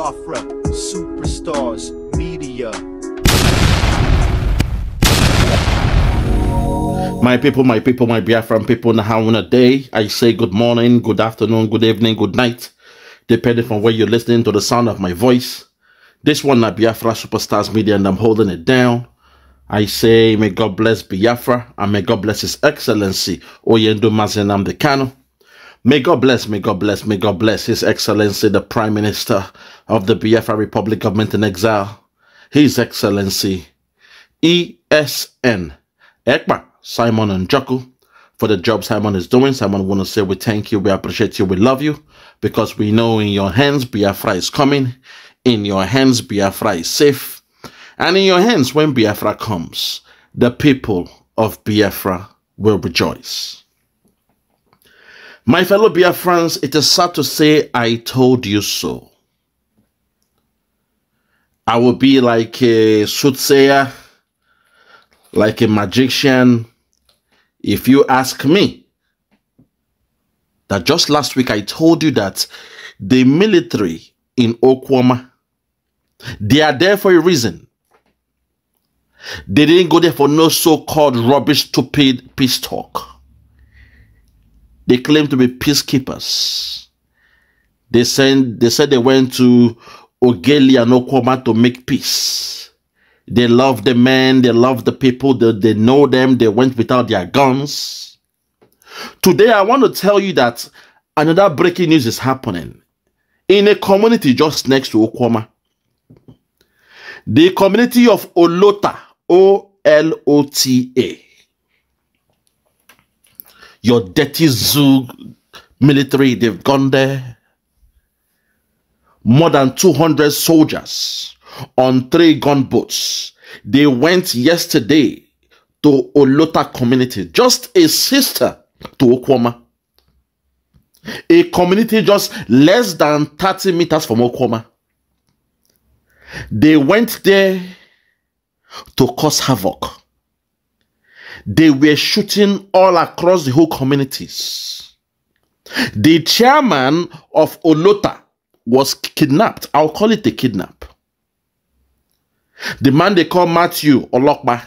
Lofra, Superstars, Media. My people, my people, my Biafran people, a Day. I say good morning, good afternoon, good evening, good night, depending from where you're listening to the sound of my voice. This one, na Biafra Superstars Media, and I'm holding it down. I say, may God bless Biafra, and may God bless His Excellency, Oyendo Mazenam Dekano. May God bless, may God bless, may God bless His Excellency, the Prime Minister of the Biafra Republic Government in Exile, His Excellency ESN Ekpa Simon and Joku, for the job Simon is doing. Simon want to say we thank you, we appreciate you, we love you, because we know in your hands Biafra is coming, in your hands Biafra is safe, and in your hands when Biafra comes, the people of Biafra will rejoice. My fellow Biafrans, it is sad to say I told you so. I will be like a soothsayer, like a magician, if you ask me. That just last week I told you that the military in Okwama, they are there for a reason. They didn't go there for no so-called rubbish, stupid peace talk. They claim to be peacekeepers. They send, they said they went to Ogelia and Okoma to make peace. They love the men, they love the people, they, they know them, they went without their guns. Today, I want to tell you that another breaking news is happening in a community just next to Okwama. The community of Olota, O L O T A. Your dirty zoo military, they've gone there more than 200 soldiers on three gunboats. They went yesterday to Olota community, just a sister to Okwoma, A community just less than 30 meters from Okwoma. They went there to cause havoc. They were shooting all across the whole communities. The chairman of Olota was kidnapped. I'll call it a kidnap. The man they call Matthew Olokpa,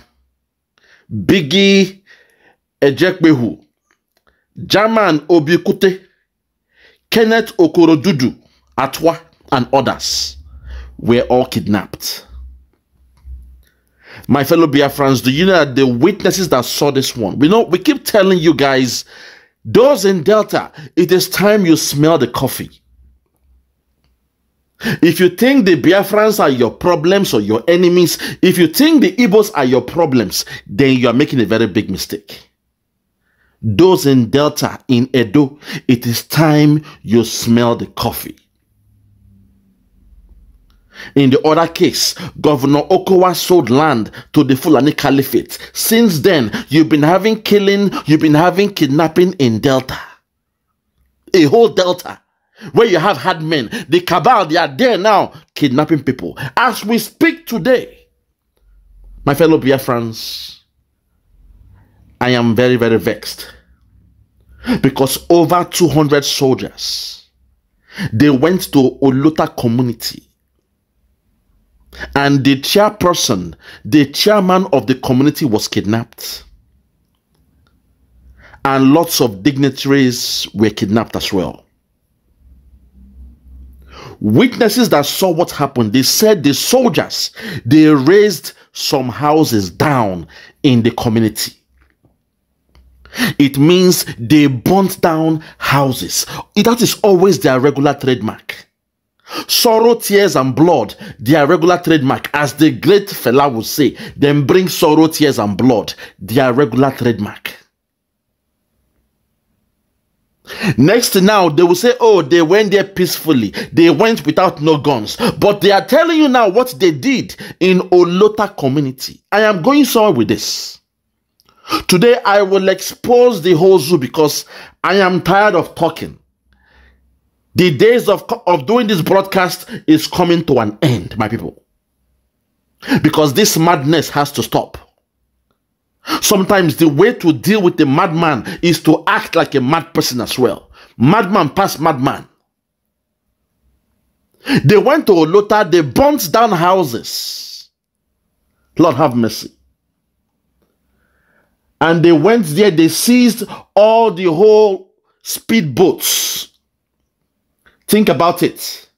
Biggie Ejekbehu, Jaman Obikute, Kenneth Okorodudu, Atwa, and others were all kidnapped. My fellow Biafrans, do you know that the witnesses that saw this one? We know we keep telling you guys, those in Delta, it is time you smell the coffee. If you think the Biafrans are your problems or your enemies, if you think the Igbos are your problems, then you are making a very big mistake. Those in Delta, in Edo, it is time you smell the coffee. In the other case, Governor Okowa sold land to the Fulani Caliphate. Since then, you've been having killing, you've been having kidnapping in Delta. A whole Delta where you have had men. The cabal, they are there now kidnapping people. As we speak today, my fellow friends. I am very, very vexed because over 200 soldiers they went to Oluta community and the chairperson, the chairman of the community was kidnapped and lots of dignitaries were kidnapped as well. Witnesses that saw what happened, they said the soldiers, they raised some houses down in the community. It means they burnt down houses. That is always their regular trademark. Sorrow, tears, and blood, their regular trademark. As the great fella would say, then bring sorrow, tears, and blood, their regular trademark. Next now, they will say, Oh, they went there peacefully. They went without no guns. But they are telling you now what they did in Olota community. I am going somewhere with this. Today, I will expose the whole zoo because I am tired of talking. The days of, of doing this broadcast is coming to an end, my people. Because this madness has to stop. Sometimes the way to deal with a madman is to act like a mad person as well. Madman past madman. They went to Olota, they burnt down houses. Lord have mercy. And they went there, they seized all the whole speedboats. Think about it.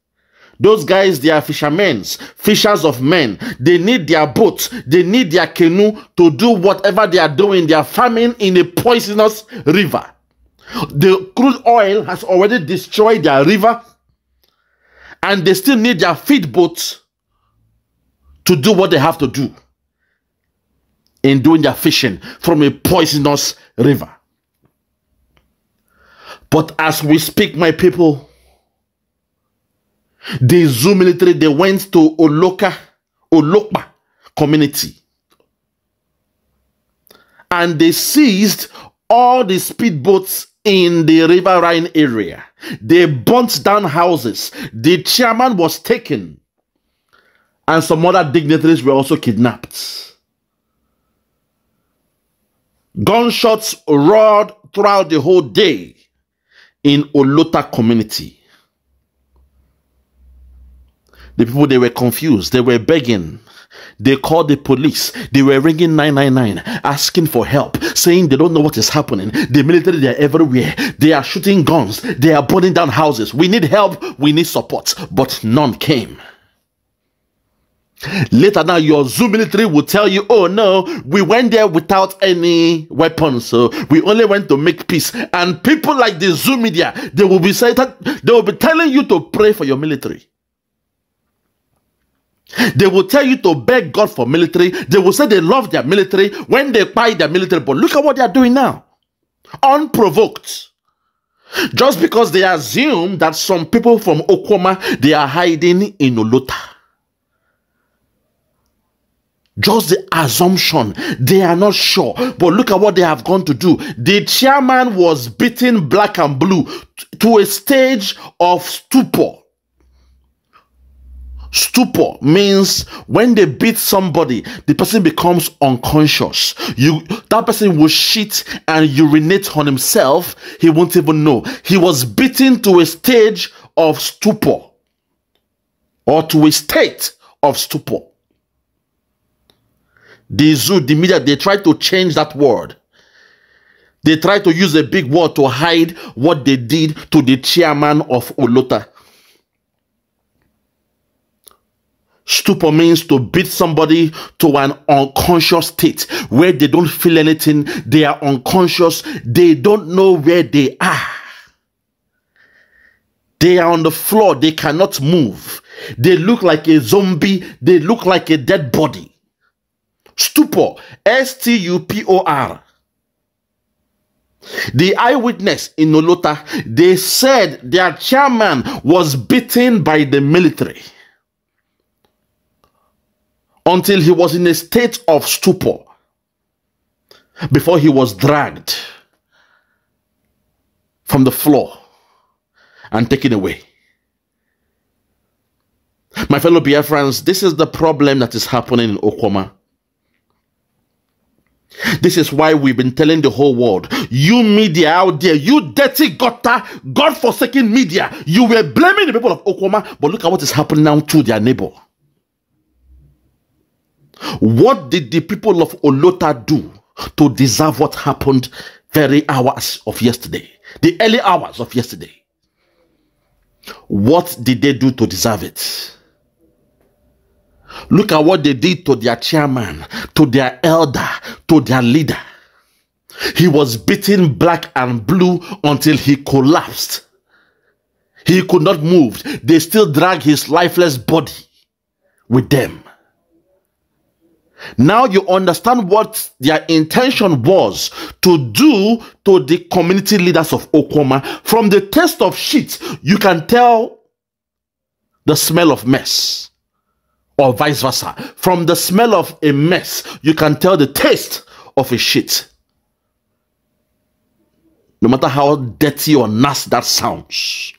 Those guys, they are fishermen, fishers of men. They need their boat, they need their canoe to do whatever they are doing. They are farming in a poisonous river. The crude oil has already destroyed their river, and they still need their feed boats to do what they have to do in doing their fishing from a poisonous river. But as we speak, my people, they Zoo military, they went to Oloka, Olokpa community. And they seized all the speedboats in the River Rhine area. They burnt down houses. The chairman was taken. And some other dignitaries were also kidnapped. Gunshots roared throughout the whole day in Olota community. The people, they were confused. They were begging. They called the police. They were ringing 999, asking for help, saying they don't know what is happening. The military, they are everywhere. They are shooting guns. They are burning down houses. We need help. We need support. But none came. Later now, your Zoo military will tell you, oh no, we went there without any weapons. So we only went to make peace. And people like the Zoo media, they will be saying that they will be telling you to pray for your military. They will tell you to beg God for military. They will say they love their military when they buy their military. But look at what they are doing now. Unprovoked. Just because they assume that some people from Okoma, they are hiding in Olota. Just the assumption. They are not sure. But look at what they have gone to do. The chairman was beaten black and blue to a stage of stupor. Stupor means when they beat somebody, the person becomes unconscious. You that person will shit and urinate on himself. He won't even know. He was beaten to a stage of stupor or to a state of stupor. The zoo, the media, they try to change that word. They try to use a big word to hide what they did to the chairman of Olota. Stupor means to beat somebody to an unconscious state where they don't feel anything, they are unconscious, they don't know where they are. They are on the floor, they cannot move. They look like a zombie, they look like a dead body. Stupor, S T U P O R. The eyewitness in Olota, they said their chairman was beaten by the military until he was in a state of stupor before he was dragged from the floor and taken away. My fellow Biafrans, this is the problem that is happening in Okoma. This is why we've been telling the whole world, you media out there, you dirty gutter, God-forsaken media, you were blaming the people of Okoma, but look at what is happening now to their neighbor. What did the people of Olota do to deserve what happened very hours of yesterday? The early hours of yesterday. What did they do to deserve it? Look at what they did to their chairman, to their elder, to their leader. He was beaten black and blue until he collapsed. He could not move. They still drag his lifeless body with them. Now you understand what their intention was to do to the community leaders of Okoma. From the taste of shit, you can tell the smell of mess, or vice versa. From the smell of a mess, you can tell the taste of a shit. No matter how dirty or nasty that sounds,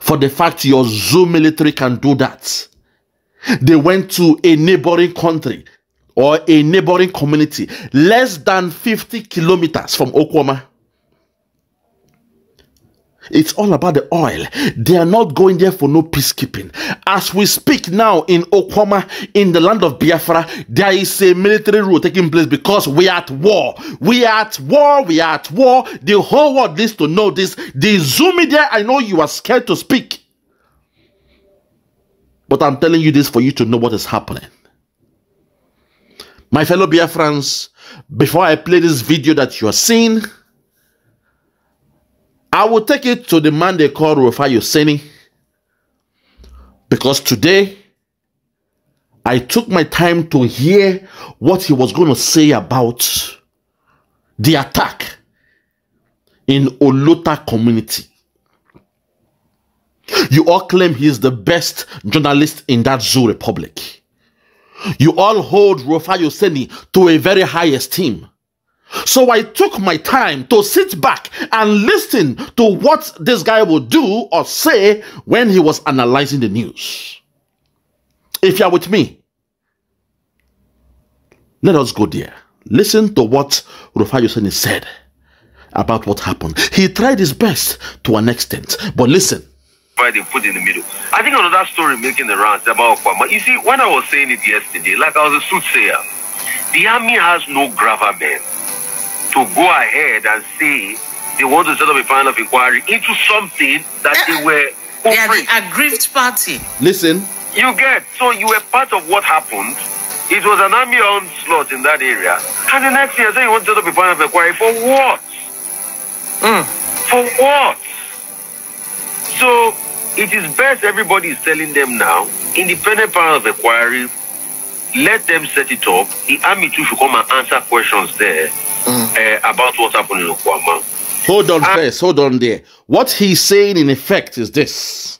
for the fact your zoo military can do that. They went to a neighboring country or a neighboring community less than 50 kilometers from Okwama. It's all about the oil. They are not going there for no peacekeeping. As we speak now in Okwama, in the land of Biafra, there is a military rule taking place because we are at war. We are at war. We are at war. The whole world needs to know this. The Zoom media, I know you are scared to speak. But I'm telling you this for you to know what is happening. My fellow Biafrans, before I play this video that you are seeing, I will take it to the man they call Rufai Yoseni. Because today, I took my time to hear what he was going to say about the attack in Olota community. You all claim he is the best journalist in that zoo republic. You all hold Rufai Yoseni to a very high esteem. So I took my time to sit back and listen to what this guy would do or say when he was analyzing the news. If you are with me, let us go there. Listen to what Rufai Yoseni said about what happened. He tried his best to an extent, but listen. Why they put in the middle? I think another story making the rounds about Kwama. You see, when I was saying it yesterday, like I was a soothsayer, the army has no gravamen to go ahead and say they want to set up a panel of inquiry into something that they eh, were they are the aggrieved party. Listen. You get. So you were part of what happened. It was an army onslaught in that area. And the next year, say you want to set up a panel of inquiry for what? Mm. For what? So it is best everybody is telling them now, independent power of inquiry, let them set it up. The army too should come and answer questions there mm. uh, about what happened in Okwama. Hold on and ah. first, hold on there. What he's saying in effect is this.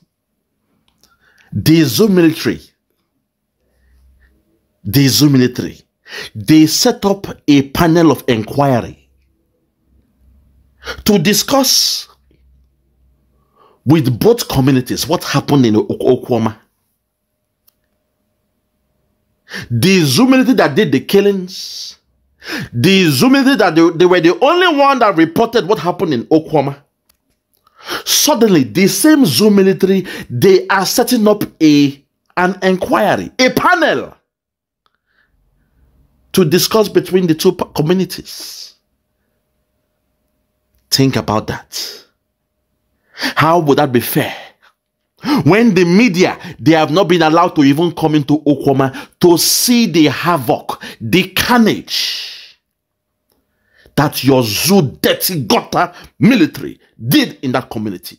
The Zoom military, the Zoom military, they set up a panel of inquiry to discuss with both communities what happened in Okwama. The Zumelity that did the killings, the Zumelity that they, they, were the only one that reported what happened in Okwama. Suddenly, the same zoo military, they are setting up a an inquiry, a panel to discuss between the two communities. Think about that. How would that be fair? When the media, they have not been allowed to even come into Okwama to see the havoc, the carnage that your zoo dirty gutter military did in that community.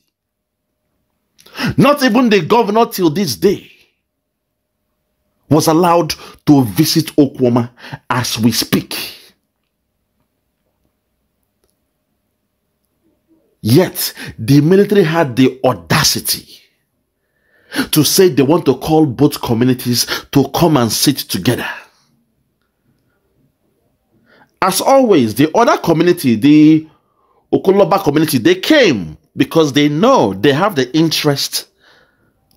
Not even the governor till this day was allowed to visit Okwama as we speak. Yet, the military had the audacity to say they want to call both communities to come and sit together. As always, the other community, the Okoloba community, they came because they know they have the interest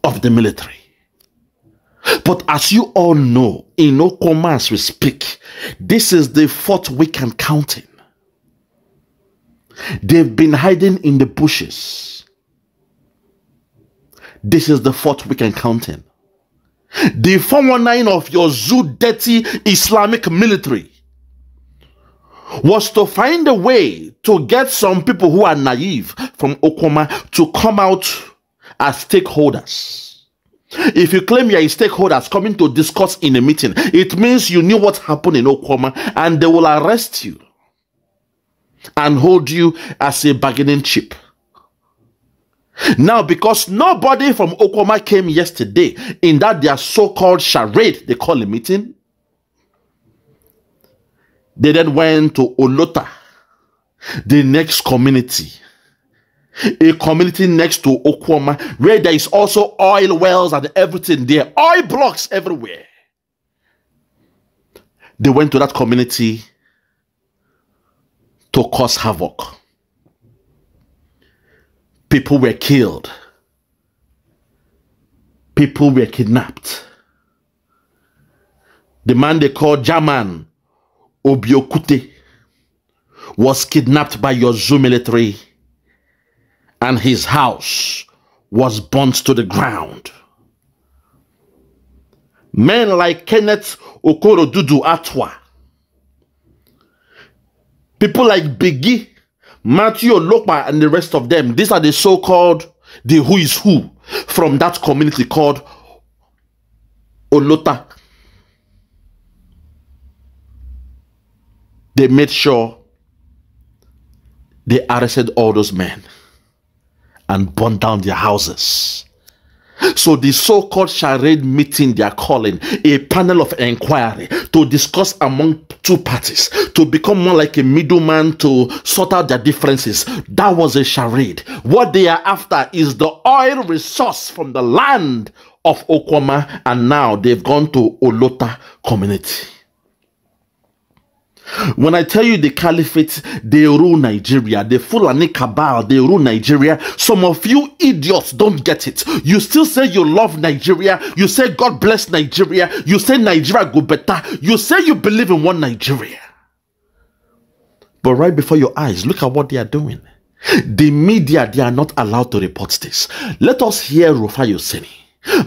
of the military. But as you all know, in Okomas we speak, this is the fourth week and counting. They've been hiding in the bushes. This is the fourth week and counting. The 419 of your zoo dirty Islamic military was to find a way to get some people who are naive from Okoma to come out as stakeholders. If you claim you are stakeholders coming to discuss in a meeting, it means you knew what happened in Okoma and they will arrest you and hold you as a bargaining chip. Now, because nobody from Okoma came yesterday in that their so-called charade, they call a meeting, they then went to Olota, the next community, a community next to Okoma, where there is also oil wells and everything there, oil blocks everywhere. They went to that community to cause havoc. People were killed. People were kidnapped. The man they call Jaman Obiokute was kidnapped by your zoo military and his house was burnt to the ground. Men like Kenneth Okoro Dudu Atwa People like Biggie, Matthew Lokpa, and the rest of them. These are the so-called the who is who from that community called Olota. They made sure they arrested all those men and burned down their houses. So the so-called charade meeting they are calling a panel of inquiry to discuss among two parties to become more like a middleman to sort out their differences. That was a charade. What they are after is the oil resource from the land of Okwama and now they've gone to Olota community. When I tell you the caliphate, they rule Nigeria. The Fulani cabal, they rule Nigeria. Some of you idiots don't get it. You still say you love Nigeria. You say God bless Nigeria. You say Nigeria go better. You say you believe in one Nigeria. But right before your eyes, look at what they are doing. The media, they are not allowed to report this. Let us hear Rufai Yoseni.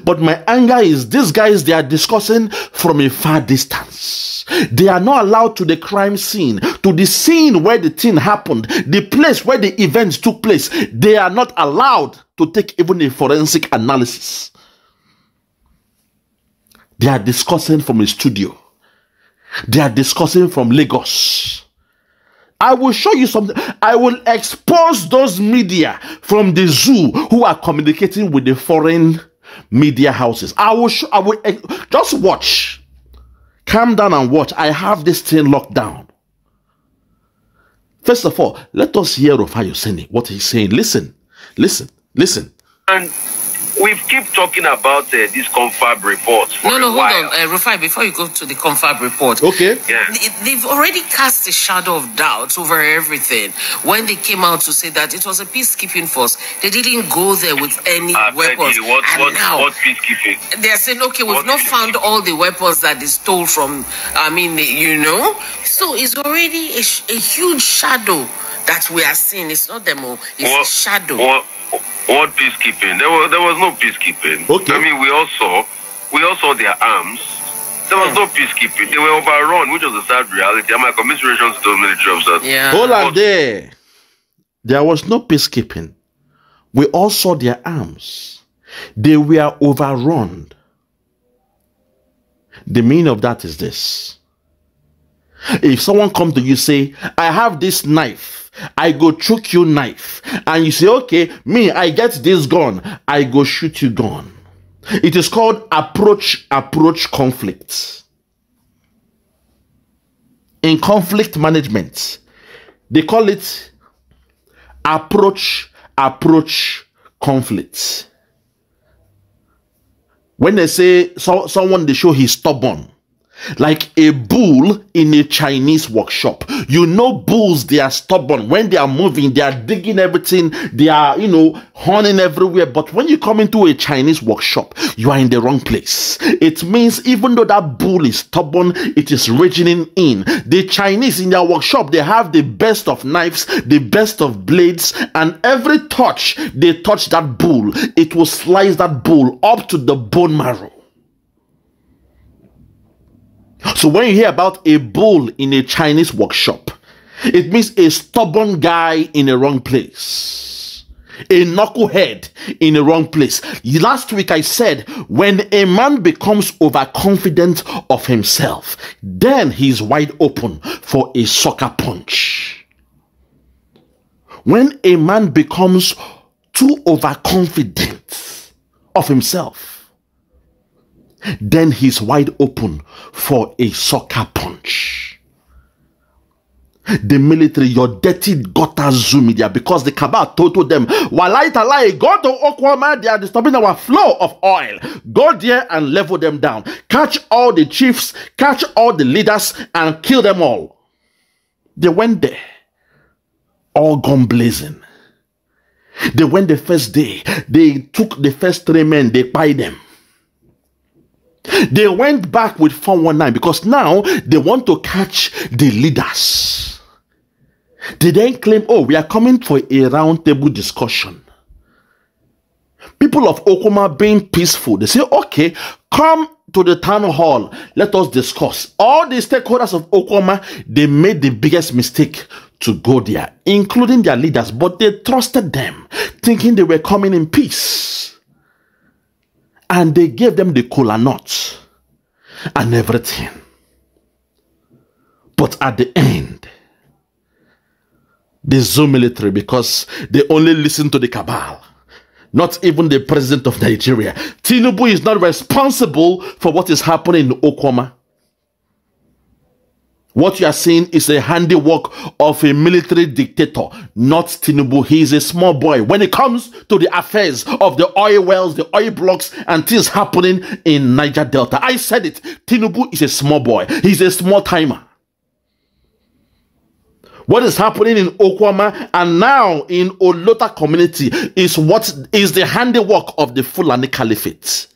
But my anger is these guys, they are discussing from a far distance. They are not allowed to the crime scene, to the scene where the thing happened, the place where the events took place. They are not allowed to take even a forensic analysis. They are discussing from a studio. They are discussing from Lagos. I will show you something. I will expose those media from the zoo who are communicating with the foreign media houses. I will, sh- I will eh, just watch. Calm down and watch. I have this thing locked down. First of all, let us hear of Ayosene, what he's saying. Listen, listen, listen. And We've keep talking about uh, this confab report. no, no, hold on, uh, Rufai. Before you go to the confab report, okay, yeah. they've already cast a shadow of doubt over everything when they came out to say that it was a peacekeeping force. They didn't go there with any I weapons. You, what, and what, now what peacekeeping? They're saying, okay, we've what not found all the weapons that they stole from. I mean, you know, so it's already a, a huge shadow that we are seeing. It's not demo. Oh. It's well, a shadow. Well, what peacekeeping? There was there was no peacekeeping. Okay. I mean, we all saw, we all saw their arms. There was hmm. no peacekeeping. They were overrun, which was a sad reality. And my commiserations to those military officers. Yeah. Hold on there. There was no peacekeeping. We all saw their arms. They were overrun. The meaning of that is this. If someone come to you say, I have this knife, I go choke you knife. And you say, okay, me, I get this gun. I go shoot you gun. It is called approach, approach conflict. In conflict management, they call it approach, approach conflict. When they say so, someone, they show he's stubborn like a bull in a Chinese workshop. You know, bulls, they are stubborn. When they are moving, they are digging everything. They are, you know, honing everywhere. But when you come into a Chinese workshop, you are in the wrong place. It means even though that bull is stubborn, it is raging in. The Chinese in their workshop, they have the best of knives, the best of blades, and every touch they touch that bull, it will slice that bull up to the bone marrow. So when you hear about a bull in a Chinese workshop, it means a stubborn guy in a wrong place. A knucklehead in a wrong place. Last week I said, when a man becomes overconfident of himself, then he's wide open for a sucker punch. When a man becomes too overconfident of himself, then he's wide open for a soccer punch. The military, your dirty gutter zoo media, because the cabal told them, Walaita lie, go to Oklahoma, they are disturbing our flow of oil. Go there and level them down. Catch all the chiefs, catch all the leaders, and kill them all. They went there, all gone blazing. They went the first day, they took the first three men, they buy them. They went back with 419 because now they want to catch the leaders. They then claim, oh, we are coming for a roundtable discussion. People of Okuma being peaceful, they say, okay, come to the town hall, let us discuss. All the stakeholders of Okuma, they made the biggest mistake to go there, including their leaders, but they trusted them, thinking they were coming in peace and they gave them the cola nuts and everything. But at the end, the Zoom military, because they only listen to the cabal, not even the president of Nigeria. Tinubu is not responsible for what is happening in Okoma. What you are seeing is a handiwork of a military dictator, not Tinubu. He is a small boy. When it comes to the affairs of the oil wells, the oil blocks, and things happening in Niger Delta, I said it. Tinubu is a small boy. He's a small timer. What is happening in Okwama and now in Olota community is what is the handiwork of the Fulani Caliphate.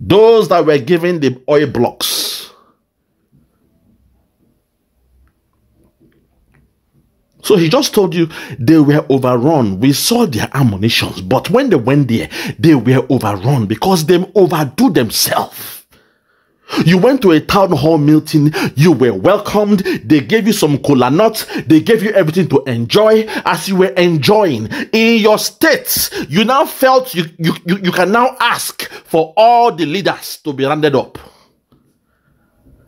Those that were given the oil blocks So he just told you they were overrun. We saw their ammunitions, but when they went there, they were overrun because they overdo themselves. You went to a town hall meeting, you were welcomed, they gave you some cola nuts, they gave you everything to enjoy as you were enjoying. In your states, you now felt you, you, you, you can now ask for all the leaders to be rounded up.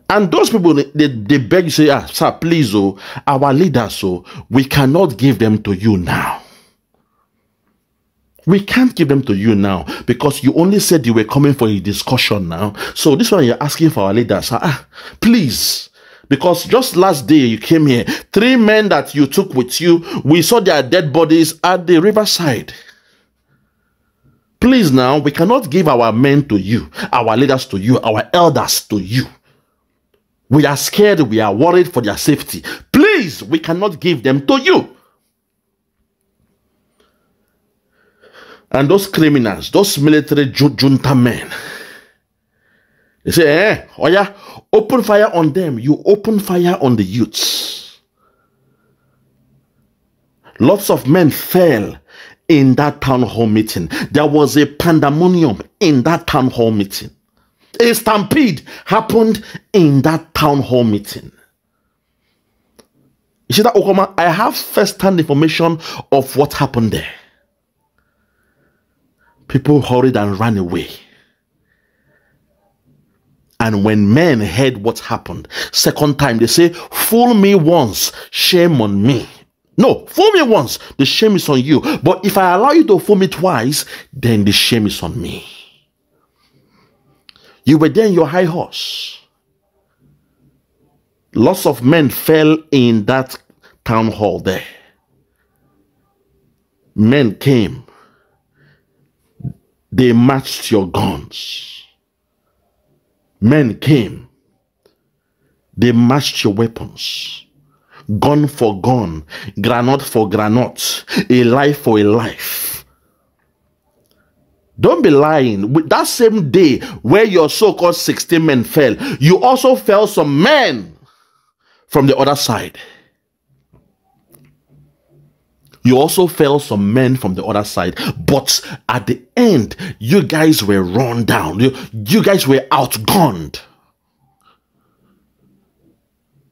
And those people, they, they beg, say, ah, sir, please, oh, our leaders, oh, we cannot give them to you now. We can't give them to you now because you only said you were coming for a discussion now. So this one you're asking for our leaders, ah, ah please. Because just last day you came here, three men that you took with you, we saw their dead bodies at the riverside. Please now, we cannot give our men to you, our leaders to you, our elders to you. We are scared. We are worried for their safety. Please, we cannot give them to you. And those criminals, those military junta men, they say, eh, oh yeah, open fire on them. You open fire on the youths. Lots of men fell in that town hall meeting. There was a pandemonium in that town hall meeting a stampede happened in that town hall meeting. that, Okoma, I have first-hand information of what happened there. People hurried and ran away. And when men heard what happened, second time they say, Fool me once, shame on me. No, fool me once, the shame is on you. But if I allow you to fool me twice, then the shame is on me. You were there in your high horse. Lots of men fell in that town hall there. Men came. They matched your guns. Men came. They matched your weapons. Gun for gun, granite for granite, a life for a life don't be lying. With that same day where your so-called 16 men fell, you also fell some men from the other side. You also fell some men from the other side, but at the end, you guys were run down. You, you guys were outgunned.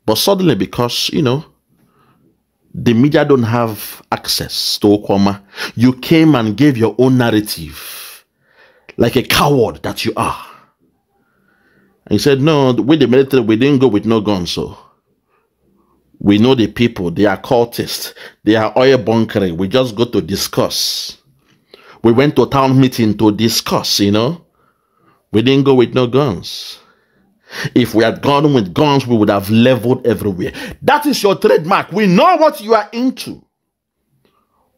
But suddenly, because you know, the media don't have access to Okoma, you came and gave your own narrative like a coward that you are. And he said, No, with the military, we didn't go with no guns. So we know the people, they are cultists, they are oil bunkering. We just go to discuss. We went to town meeting to discuss, you know. We didn't go with no guns. If we had gone with guns, we would have leveled everywhere. That is your trademark. We know what you are into.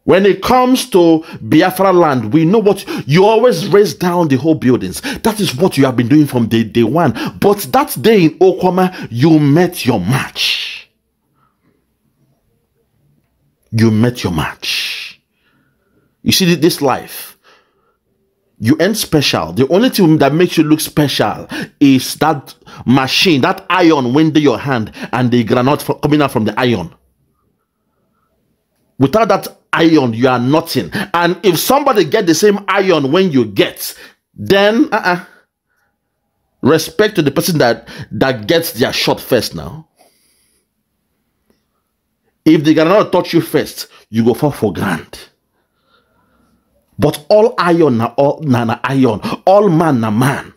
When it comes to Biafra land, we know what you always raise down the whole buildings. That is what you have been doing from day, day one. But that day in Okwama, you met your match. You met your match. You see, this life, you ain't special. The only thing that makes you look special is that machine, that iron winding your hand and the granite coming out from the iron. Without that iron, you are nothing. And if somebody get the same iron when you get, then uh -uh. respect to the person that that gets their shot first now. If they cannot touch you first, you go for for grand. But all iron na all na, na iron, all man na man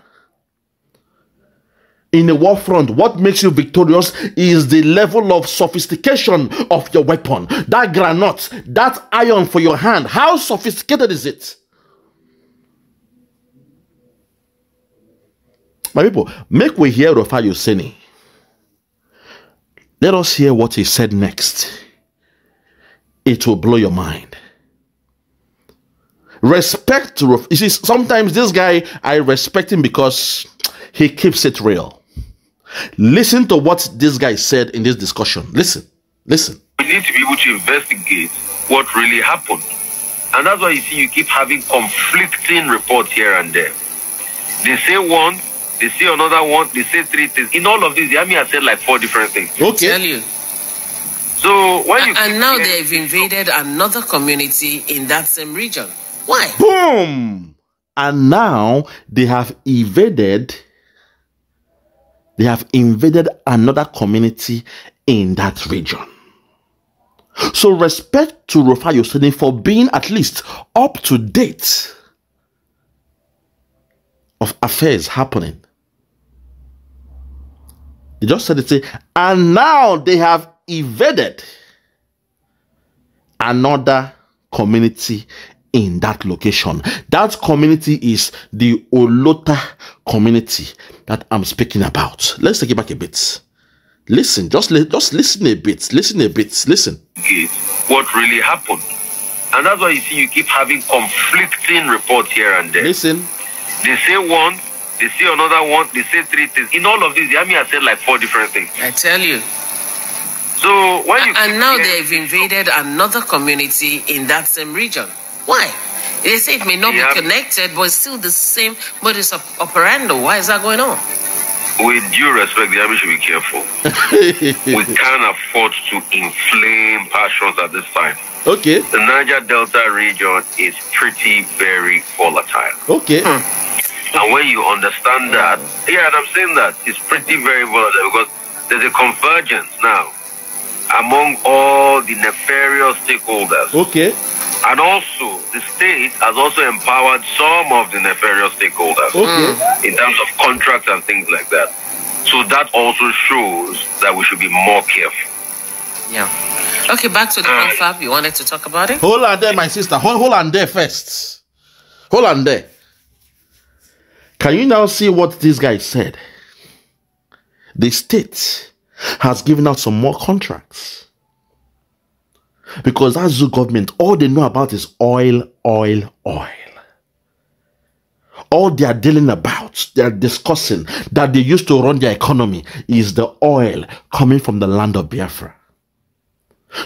in a war front, what makes you victorious is the level of sophistication of your weapon. That granite, that iron for your hand, how sophisticated is it? My people, make we hear of Ayoseni. Let us hear what he said next. It will blow your mind. Respect, you see, sometimes this guy, I respect him because he keeps it real. Listen to what this guy said in this discussion. Listen, listen. We need to be able to investigate what really happened. And that's why you see you keep having conflicting reports here and there. They say one, they say another one, they say three things. In all of this, the army has said like four different things. Okay. Tell you. So why? you and now they've invaded another community in that same region. Why? Boom! And now they have invaded they have invaded another community in that region. So respect to Rafael Yosini for being at least up to date of affairs happening. They just said it, and now they have evaded another community in that location. That community is the Olota community that I'm speaking about. Let's take it back a bit. Listen, just li just listen a bit, listen a bit, listen. What really happened? And that's why you see you keep having conflicting reports here and there. Listen. They say one, they say another one, they say three things. In all of this, the army has said like four different things. I tell you. So you and now they've invaded another community in that same region. Why? They say it may not be connected, but it's still the same modus operandi. Why is that going on? With due respect, the army should be careful. we can't afford to inflame passions at this time. Okay. The Niger Delta region is pretty, very volatile. Okay. Hmm. And when you understand hmm. that, yeah, and I'm saying that it's pretty, very volatile because there's a convergence now among all the nefarious stakeholders. Okay and also, the state has also empowered some of the nefarious stakeholders okay. Hmm. in terms of contracts and things like that. So that also shows that we should be more careful. Yeah. Okay, back to the uh, You wanted to talk about it? Hold on there, my sister. Hold, hold on there first. Hold on there. Can you now see what this guy said? The state has given out some more contracts because that Zoo government, all they know about is oil, oil, oil. All they are dealing about, they are discussing that they used to run their economy is the oil coming from the land of Biafra.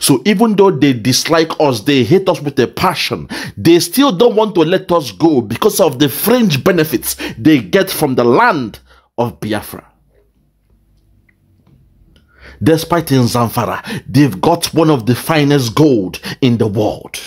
So even though they dislike us, they hate us with a passion, they still don't want to let us go because of the fringe benefits they get from the land of Biafra despite in Zamfara, they've got one of the finest gold in the world.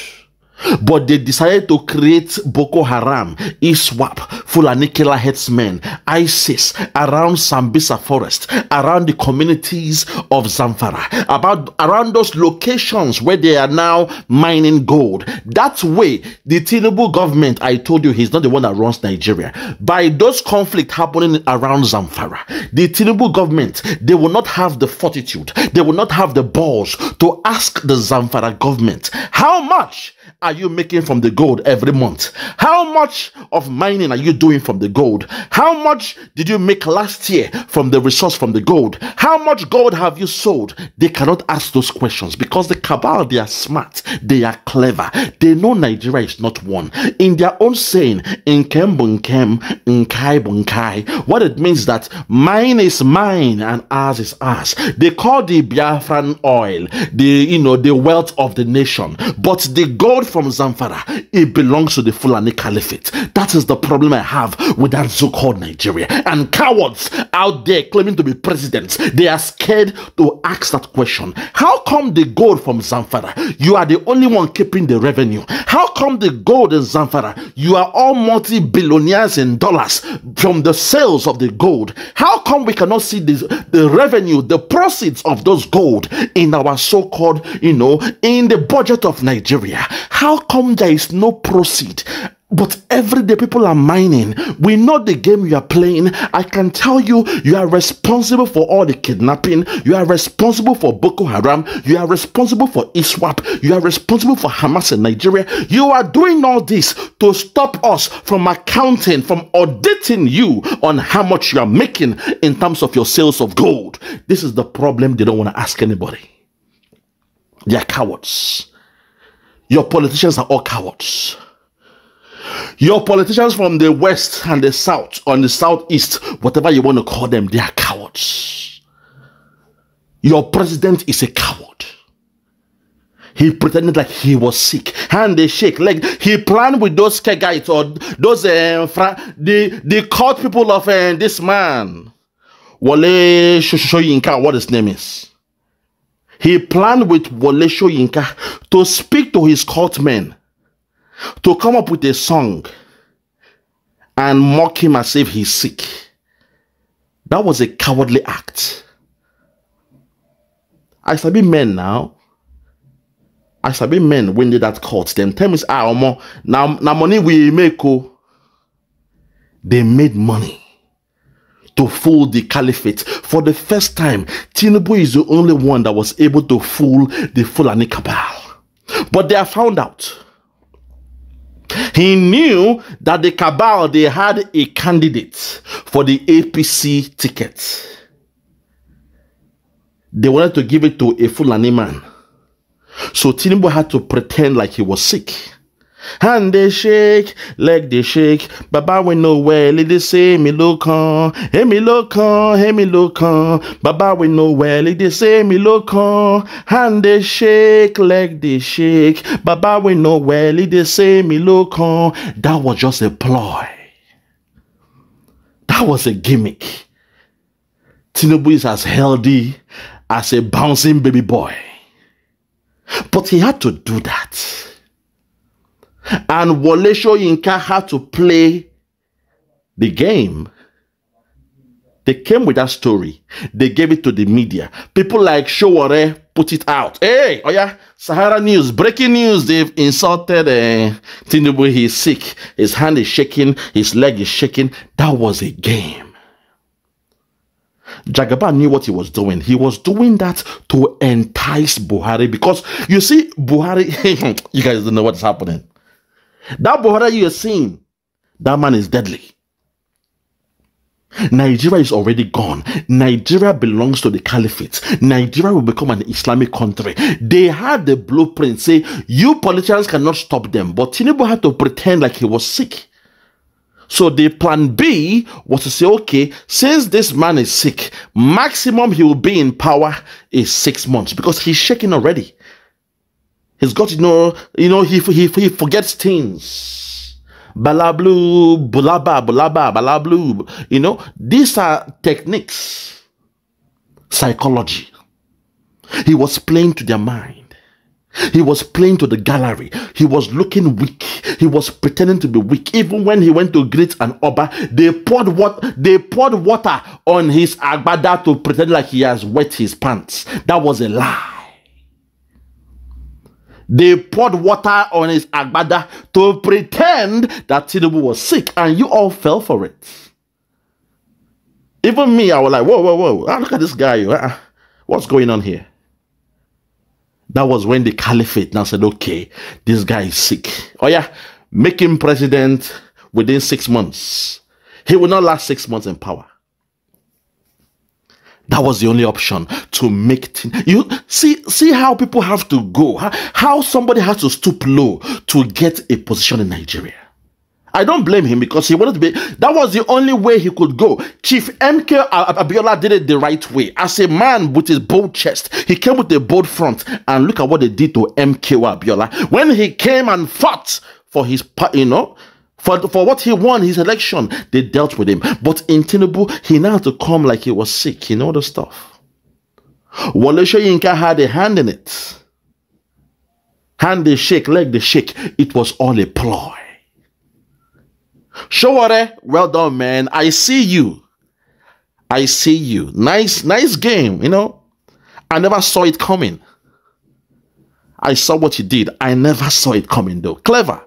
But they decided to create Boko Haram, ISWAP, Fulani killer headsmen, ISIS, around Sambisa forest, around the communities of Zamfara, about around those locations where they are now mining gold. That way, the Tinubu government, I told you, he's not the one that runs Nigeria. By those conflict happening around Zamfara, the Tinubu government, they will not have the fortitude, they will not have the balls to ask the Zamfara government, how much are you making from the gold every month? How much of mining are you doing from the gold? How much did you make last year from the resource from the gold? How much gold have you sold? They cannot ask those questions because the cabal, they are smart, they are clever, they know Nigeria is not one. In their own saying, in Kem in Kai Bunkai, what it means that mine is mine and ours is ours. They call the Biafran oil the you know the wealth of the nation, but the gold from Zamfara, it belongs to the Fulani Caliphate. That is the problem I have with that so called Nigeria. And cowards out there claiming to be presidents, they are scared to ask that question. How come the gold from Zamfara, you are the only one keeping the revenue? How come the gold in Zamfara, you are all multi billionaires in dollars from the sales of the gold? How come we cannot see this, the revenue, the proceeds of those gold in our so called, you know, in the budget of Nigeria? How how come there is no proceed? But every day people are mining. We know the game you are playing. I can tell you, you are responsible for all the kidnapping. You are responsible for Boko Haram. You are responsible for ISWAP. You are responsible for Hamas in Nigeria. You are doing all this to stop us from accounting, from auditing you on how much you are making in terms of your sales of gold. This is the problem they don't want to ask anybody. They are cowards. Your politicians are all cowards. Your politicians from the west and the south, on the southeast, whatever you want to call them, they are cowards. Your president is a coward. He pretended that he was sick, and they shake leg. Like he planned with those Kegites or those uh, the the court people of uh, this man, Wale Shoyinka, what his name is. He planned with Wole Yinka to speak to his courtmen to come up with a song and mock him as if he's sick. That was a cowardly act. I shall be men now. I shall be men when they that court. Them tell me, ah, now, now money we make. Oh. They made money to fool the caliphate. For the first time, Tinubu is the only one that was able to fool the Fulani cabal. But they are found out. He knew that the cabal, they had a candidate for the APC ticket. They wanted to give it to a Fulani man. So Tinubu had to pretend like he was sick hand they shake, leg they shake. Baba we know well. let they say me look on, hey me look on, hey me look on. Baba we know well. let they say me look on, hand they shake, leg they shake. Baba we know well. let they say me look on. That was just a ploy. That was a gimmick. Tinubu is as healthy as a bouncing baby boy. But he had to do that and Wole Soyinka had to play the game. They came with that story. They gave it to the media. People like Showore put it out. Hey, oh yeah, Sahara News, breaking news. They've insulted uh, Tinubu. He's sick. His hand is shaking. His leg is shaking. That was a game. Jagaba knew what he was doing. He was doing that to entice Buhari because you see, Buhari, you guys don't know what's happening. That brother you are seeing, that man is deadly. Nigeria is already gone. Nigeria belongs to the caliphate. Nigeria will become an Islamic country. They had the blueprint. Say, you politicians cannot stop them. But Tinubu had to pretend like he was sick. So the plan B was to say, okay, since this man is sick, maximum he will be in power is six months because he's shaking already. He's got you know, you know, he, he, he forgets things. Balablu, bulaba, bulaba, balablu. You know, these are techniques, psychology. He was playing to their mind. He was playing to the gallery. He was looking weak. He was pretending to be weak. Even when he went to greet an oba, they poured what they poured water on his agbada to pretend like he has wet his pants. That was a lie. They poured water on his agbada to pretend that Tinubu was sick, and you all fell for it. Even me, I was like, whoa, whoa, whoa, ah, look at this guy. Ah, ah, what's going on here? That was when the caliphate now said, okay, this guy is sick. Oh, yeah, make him president within six months. He will not last six months in power. That was the only option to make things. You see, see how people have to go, how, how somebody has to stoop low to get a position in Nigeria. I don't blame him because he wanted to be. That was the only way he could go. Chief MK Abiola did it the right way. As a man with his bold chest, he came with a bold front. And look at what they did to MK Abiola when he came and fought for his, you know, for, for what he won his election, they dealt with him. But in Tinubu, he now had to come like he was sick, you know the stuff. Wale inca had a hand in it. Hand they shake, leg they shake. It was all a ploy. Showore, well done, man. I see you. I see you. Nice, nice game, you know. I never saw it coming. I saw what you did. I never saw it coming, though. Clever.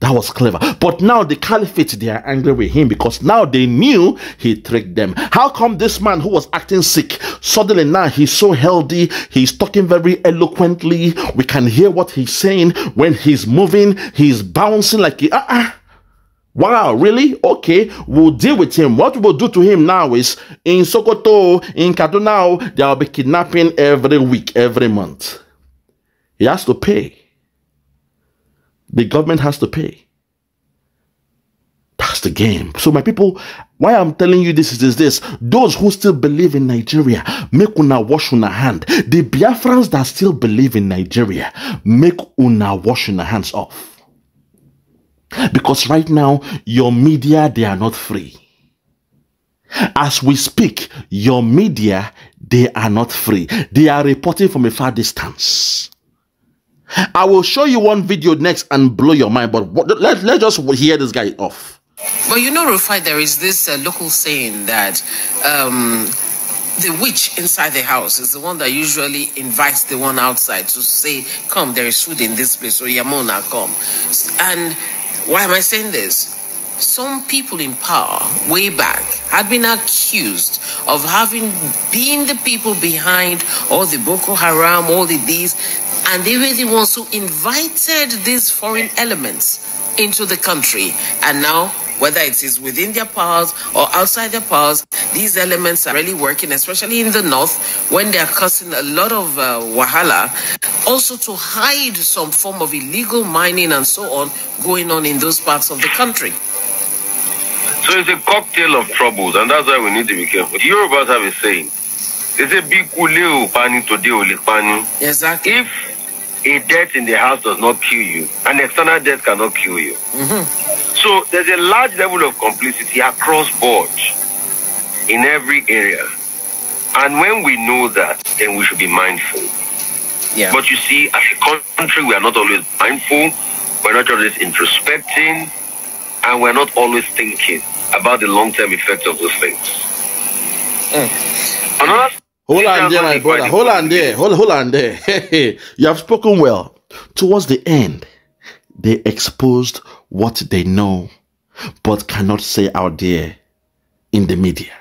That was clever. But now the caliphate, they are angry with him because now they knew he tricked them. How come this man who was acting sick, suddenly now he's so healthy, he's talking very eloquently, we can hear what he's saying. When he's moving, he's bouncing like, he, uh -uh. Wow, really? Okay, we'll deal with him. What we'll do to him now is in Sokoto, in Kaduna, there will be kidnapping every week, every month. He has to pay the government has to pay. That's the game. So, my people, why I'm telling you this is this, Those who still believe in Nigeria, make una wash una hand. The Biafrans that still believe in Nigeria, make una wash una hands off. Because right now, your media, they are not free. As we speak, your media, they are not free. They are reporting from a far distance. I will show you one video next and blow your mind, but let, let's just hear this guy off. But you know, Rufai, there is this uh, local saying that um, the witch inside the house is the one that usually invites the one outside to say, Come, there is food in this place, or Yamona, come. And why am I saying this? Some people in power way back had been accused of having been the people behind all the Boko Haram, all the these and they were the ones who invited these foreign elements into the country. And now, whether it is within their powers or outside their powers, these elements are really working, especially in the north, when they are causing a lot of uh, wahala, also to hide some form of illegal mining and so on going on in those parts of the country. So it's a cocktail of troubles, and that's why we need to be careful. The Yorubas have a saying. They say, Bikule upani today Exactly. If a death in the house does not kill you. An external death cannot kill you. Mm-hmm. So there's a large level of complicity across board in every area. And when we know that, then we should be mindful. Yeah. But you see, as a country, we are not always mindful. We're not always introspecting. And we're not always thinking about the long-term effects of those things. Mm. Another Hold on there, my brother. Hold on there. Hold, hold on there. Hey, you have spoken well. Towards the end, they exposed what they know but cannot say out there in the media.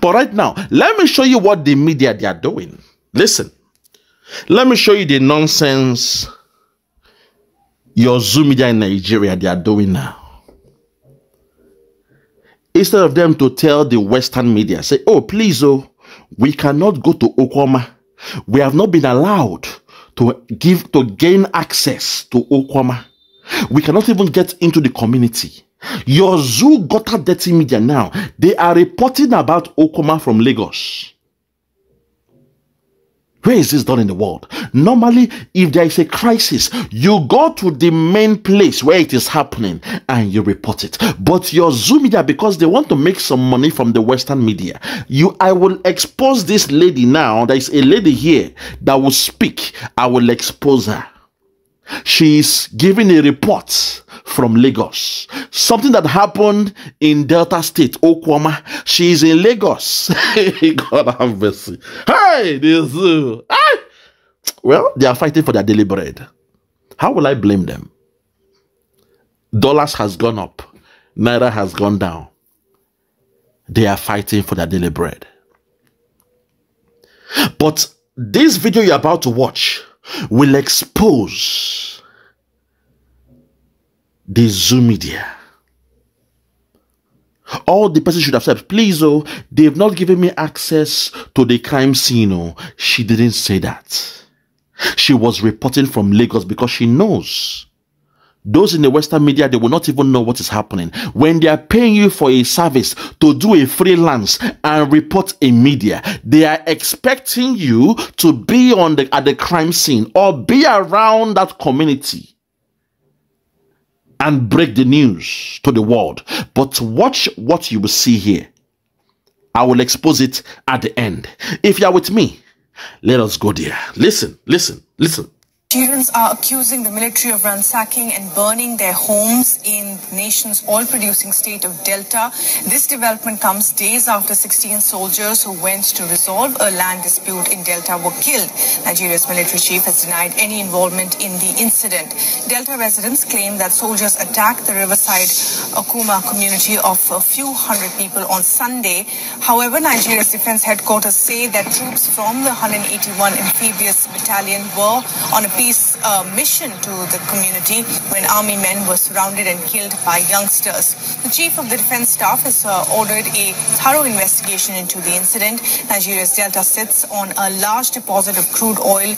But right now, let me show you what the media they are doing. Listen, let me show you the nonsense your Zoom media in Nigeria they are doing now instead of them to tell the Western media, say, oh, please, oh, we cannot go to Okwama. We have not been allowed to give to gain access to Okwama. We cannot even get into the community. Your zoo got a dirty media now. They are reporting about Okoma from Lagos. Where is is done in the world. Normally, if there is a crisis, you go to the main place where it is happening and you report it. But your Zoom media, because they want to make some money from the Western media, you, I will expose this lady now. There is a lady here that will speak. I will expose her. She's giving a report from Lagos. Something that happened in Delta State, Okwama. She's in Lagos. God have mercy. Hey, this. hey. Well, they are fighting for their daily bread. How will I blame them? Dollars has gone up, naira has gone down. They are fighting for their daily bread. But this video you're about to watch will expose the Zoom media. All the person should have said, please, oh, they've not given me access to the crime scene. Oh, she didn't say that. She was reporting from Lagos because she knows those in the Western media, they will not even know what is happening. When they are paying you for a service to do a freelance and report in media, they are expecting you to be on the at the crime scene or be around that community and break the news to the world. But watch what you will see here. I will expose it at the end. If you are with me, let us go there. Listen, listen, listen. Students are accusing the military of ransacking and burning their homes in the nation's oil-producing state of Delta. This development comes days after 16 soldiers who went to resolve a land dispute in Delta were killed. Nigeria's military chief has denied any involvement in the incident. Delta residents claim that soldiers attacked the riverside Okuma community of a few hundred people on Sunday. However, Nigeria's defense headquarters say that troops from the 181 Amphibious Battalion were on a peace uh, mission to the community when army men were surrounded and killed by youngsters. The chief of the defense staff has uh, ordered a thorough investigation into the incident. Nigeria's delta sits on a large deposit of crude oil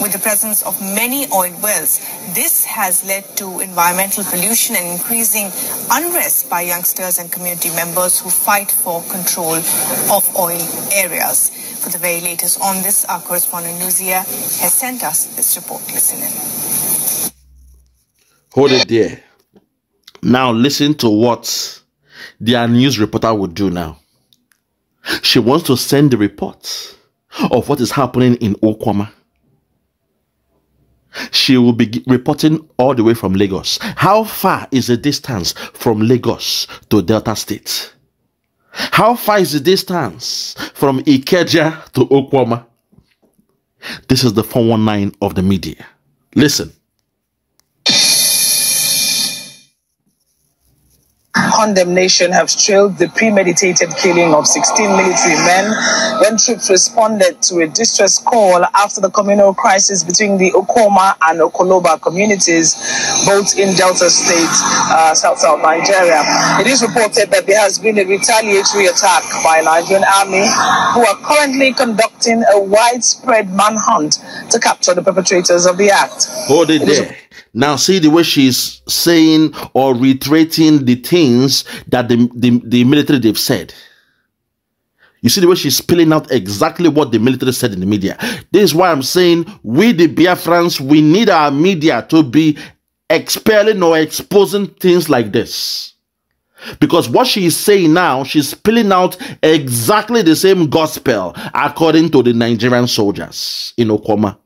with the presence of many oil wells. This has led to environmental pollution and increasing unrest by youngsters and community members who fight for control of oil areas. For the very latest on this, our correspondent Luzia has sent us this report. Listen in. Hold it there. Now listen to what their news reporter would do now. She wants to send the report of what is happening in Okwama. She will be reporting all the way from Lagos. How far is the distance from Lagos to Delta State? How far is the distance from Ikeja to Okwama? This is the 419 of the media. Listen, condemnation have trailed the premeditated killing of 16 military men when troops responded to a distress call after the communal crisis between the Okoma and Okoloba communities, both in Delta State, uh, South South Nigeria. It is reported that there has been a retaliatory attack by Nigerian army who are currently conducting a widespread manhunt to capture the perpetrators of the act. Hold it there. Now see the way she's saying or reiterating the thing things that the, the, the military they've said. You see the way she's spilling out exactly what the military said in the media. This is why I'm saying we, the Biafrans, we need our media to be expelling or exposing things like this. Because what she is saying now, she's spilling out exactly the same gospel according to the Nigerian soldiers in Okoma.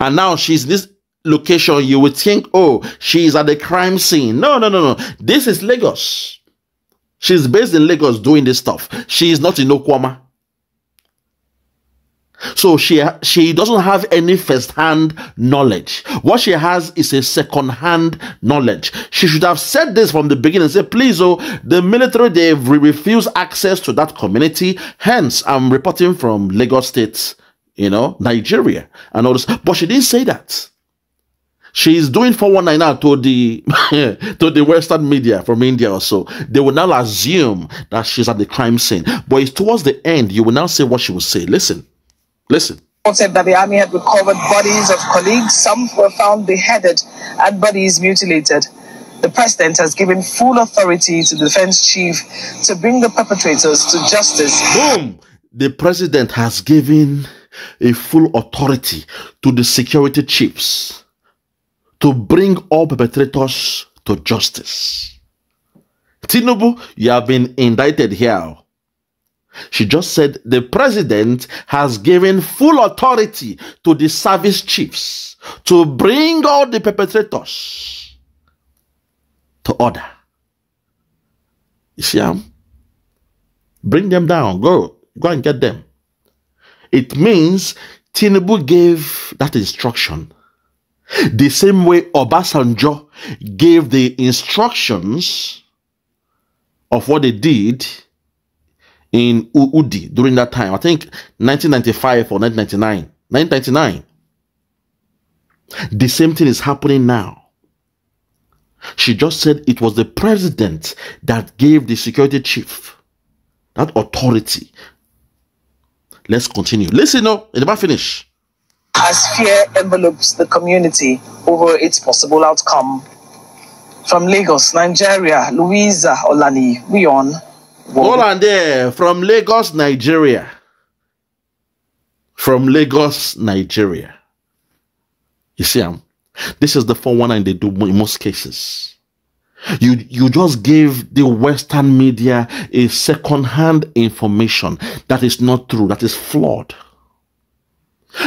And now she's this location, you would think, oh, she's at the crime scene. No, no, no, no. This is Lagos. She's based in Lagos doing this stuff. She is not in Okwama. So she she doesn't have any first-hand knowledge. What she has is a second-hand knowledge. She should have said this from the beginning. Say, please, oh, the military they refuse access to that community. Hence, I'm reporting from Lagos State, you know, Nigeria, and all this. But she didn't say that she's doing 419 now to the to the western media from india or so they will now assume that she's at the crime scene but it's towards the end you will now say what she will say listen listen said that the army had recovered bodies of colleagues some were found beheaded and bodies mutilated the president has given full authority to the defense chief to bring the perpetrators to justice boom the president has given a full authority to the security chiefs to bring all perpetrators to justice. Tinubu, you have been indicted here. She just said the president has given full authority to the service chiefs to bring all the perpetrators to order. You see them? Um, bring them down. Go. Go and get them. It means Tinubu gave that instruction the same way Obasanjo gave the instructions of what they did in Uudi during that time. I think 1995 or 1999. 1999. The same thing is happening now. She just said it was the president that gave the security chief that authority. Let's continue. Listen, no, it never finish as fear envelopes the community over its possible outcome. From Lagos, Nigeria, Louisa Olani, we on. there, from Lagos, Nigeria. From Lagos, Nigeria. You see, um, this is the 419 they do in most cases. You, you just give the Western media a second-hand information that is not true, that is flawed.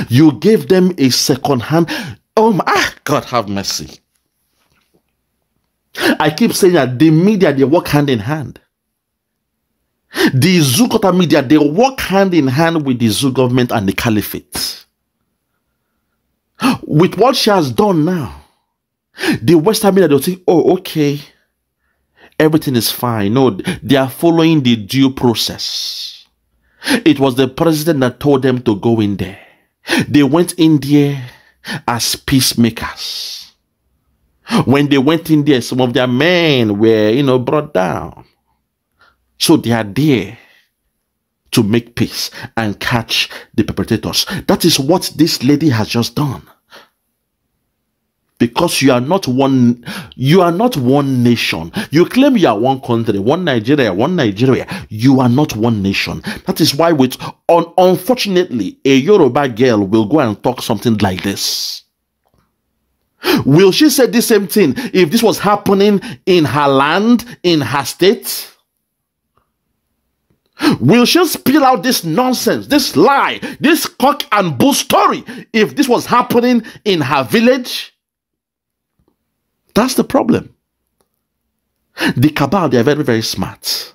You gave them a second hand. Oh my ah, God, have mercy. I keep saying that the media they work hand in hand. The Zugota media they work hand in hand with the Zou government and the caliphate. With what she has done now, the Western media they'll think, oh, okay, everything is fine. No, they are following the due process. It was the president that told them to go in there. They went in there as peacemakers. When they went in there, some of their men were, you know, brought down. So they are there to make peace and catch the perpetrators. That is what this lady has just done because you are not one you are not one nation you claim you are one country one nigeria one nigeria you are not one nation that is why with un, unfortunately a yoruba girl will go and talk something like this will she say the same thing if this was happening in her land in her state Will she spill out this nonsense, this lie, this cock and bull story if this was happening in her village? That's the problem. The cabal, they are very, very smart.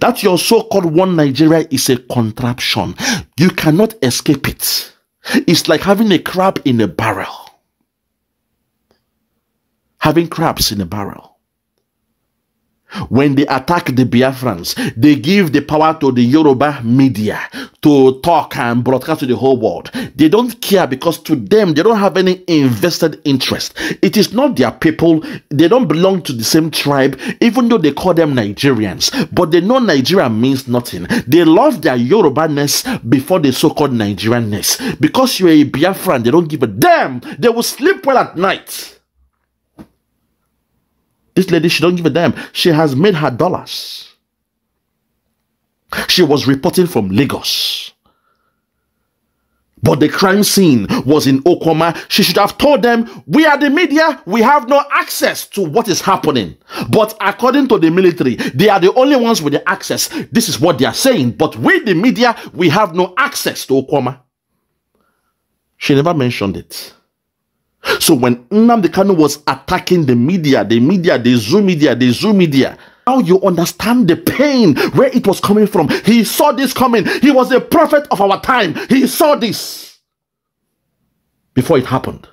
That your so called one Nigeria is a contraption. You cannot escape it. It's like having a crab in a barrel. Having crabs in a barrel when they attack the Biafrans, they give the power to the Yoruba media to talk and broadcast to the whole world. They don't care because to them, they don't have any invested interest. It is not their people. They don't belong to the same tribe, even though they call them Nigerians. But they know Nigeria means nothing. They love their Yoruba-ness before the so-called Nigerian-ness. Because you're a Biafran, they don't give a damn. They will sleep well at night. This lady, she don't give a damn. She has made her dollars. She was reporting from Lagos. But the crime scene was in Okoma. She should have told them, We are the media, we have no access to what is happening. But according to the military, they are the only ones with the access. This is what they are saying. But with the media, we have no access to Okoma. She never mentioned it. So when Nnamdi Kanu was attacking the media, the media, the Zoom media, the Zoom media, now you understand the pain where it was coming from. He saw this coming. He was a prophet of our time. He saw this before it happened.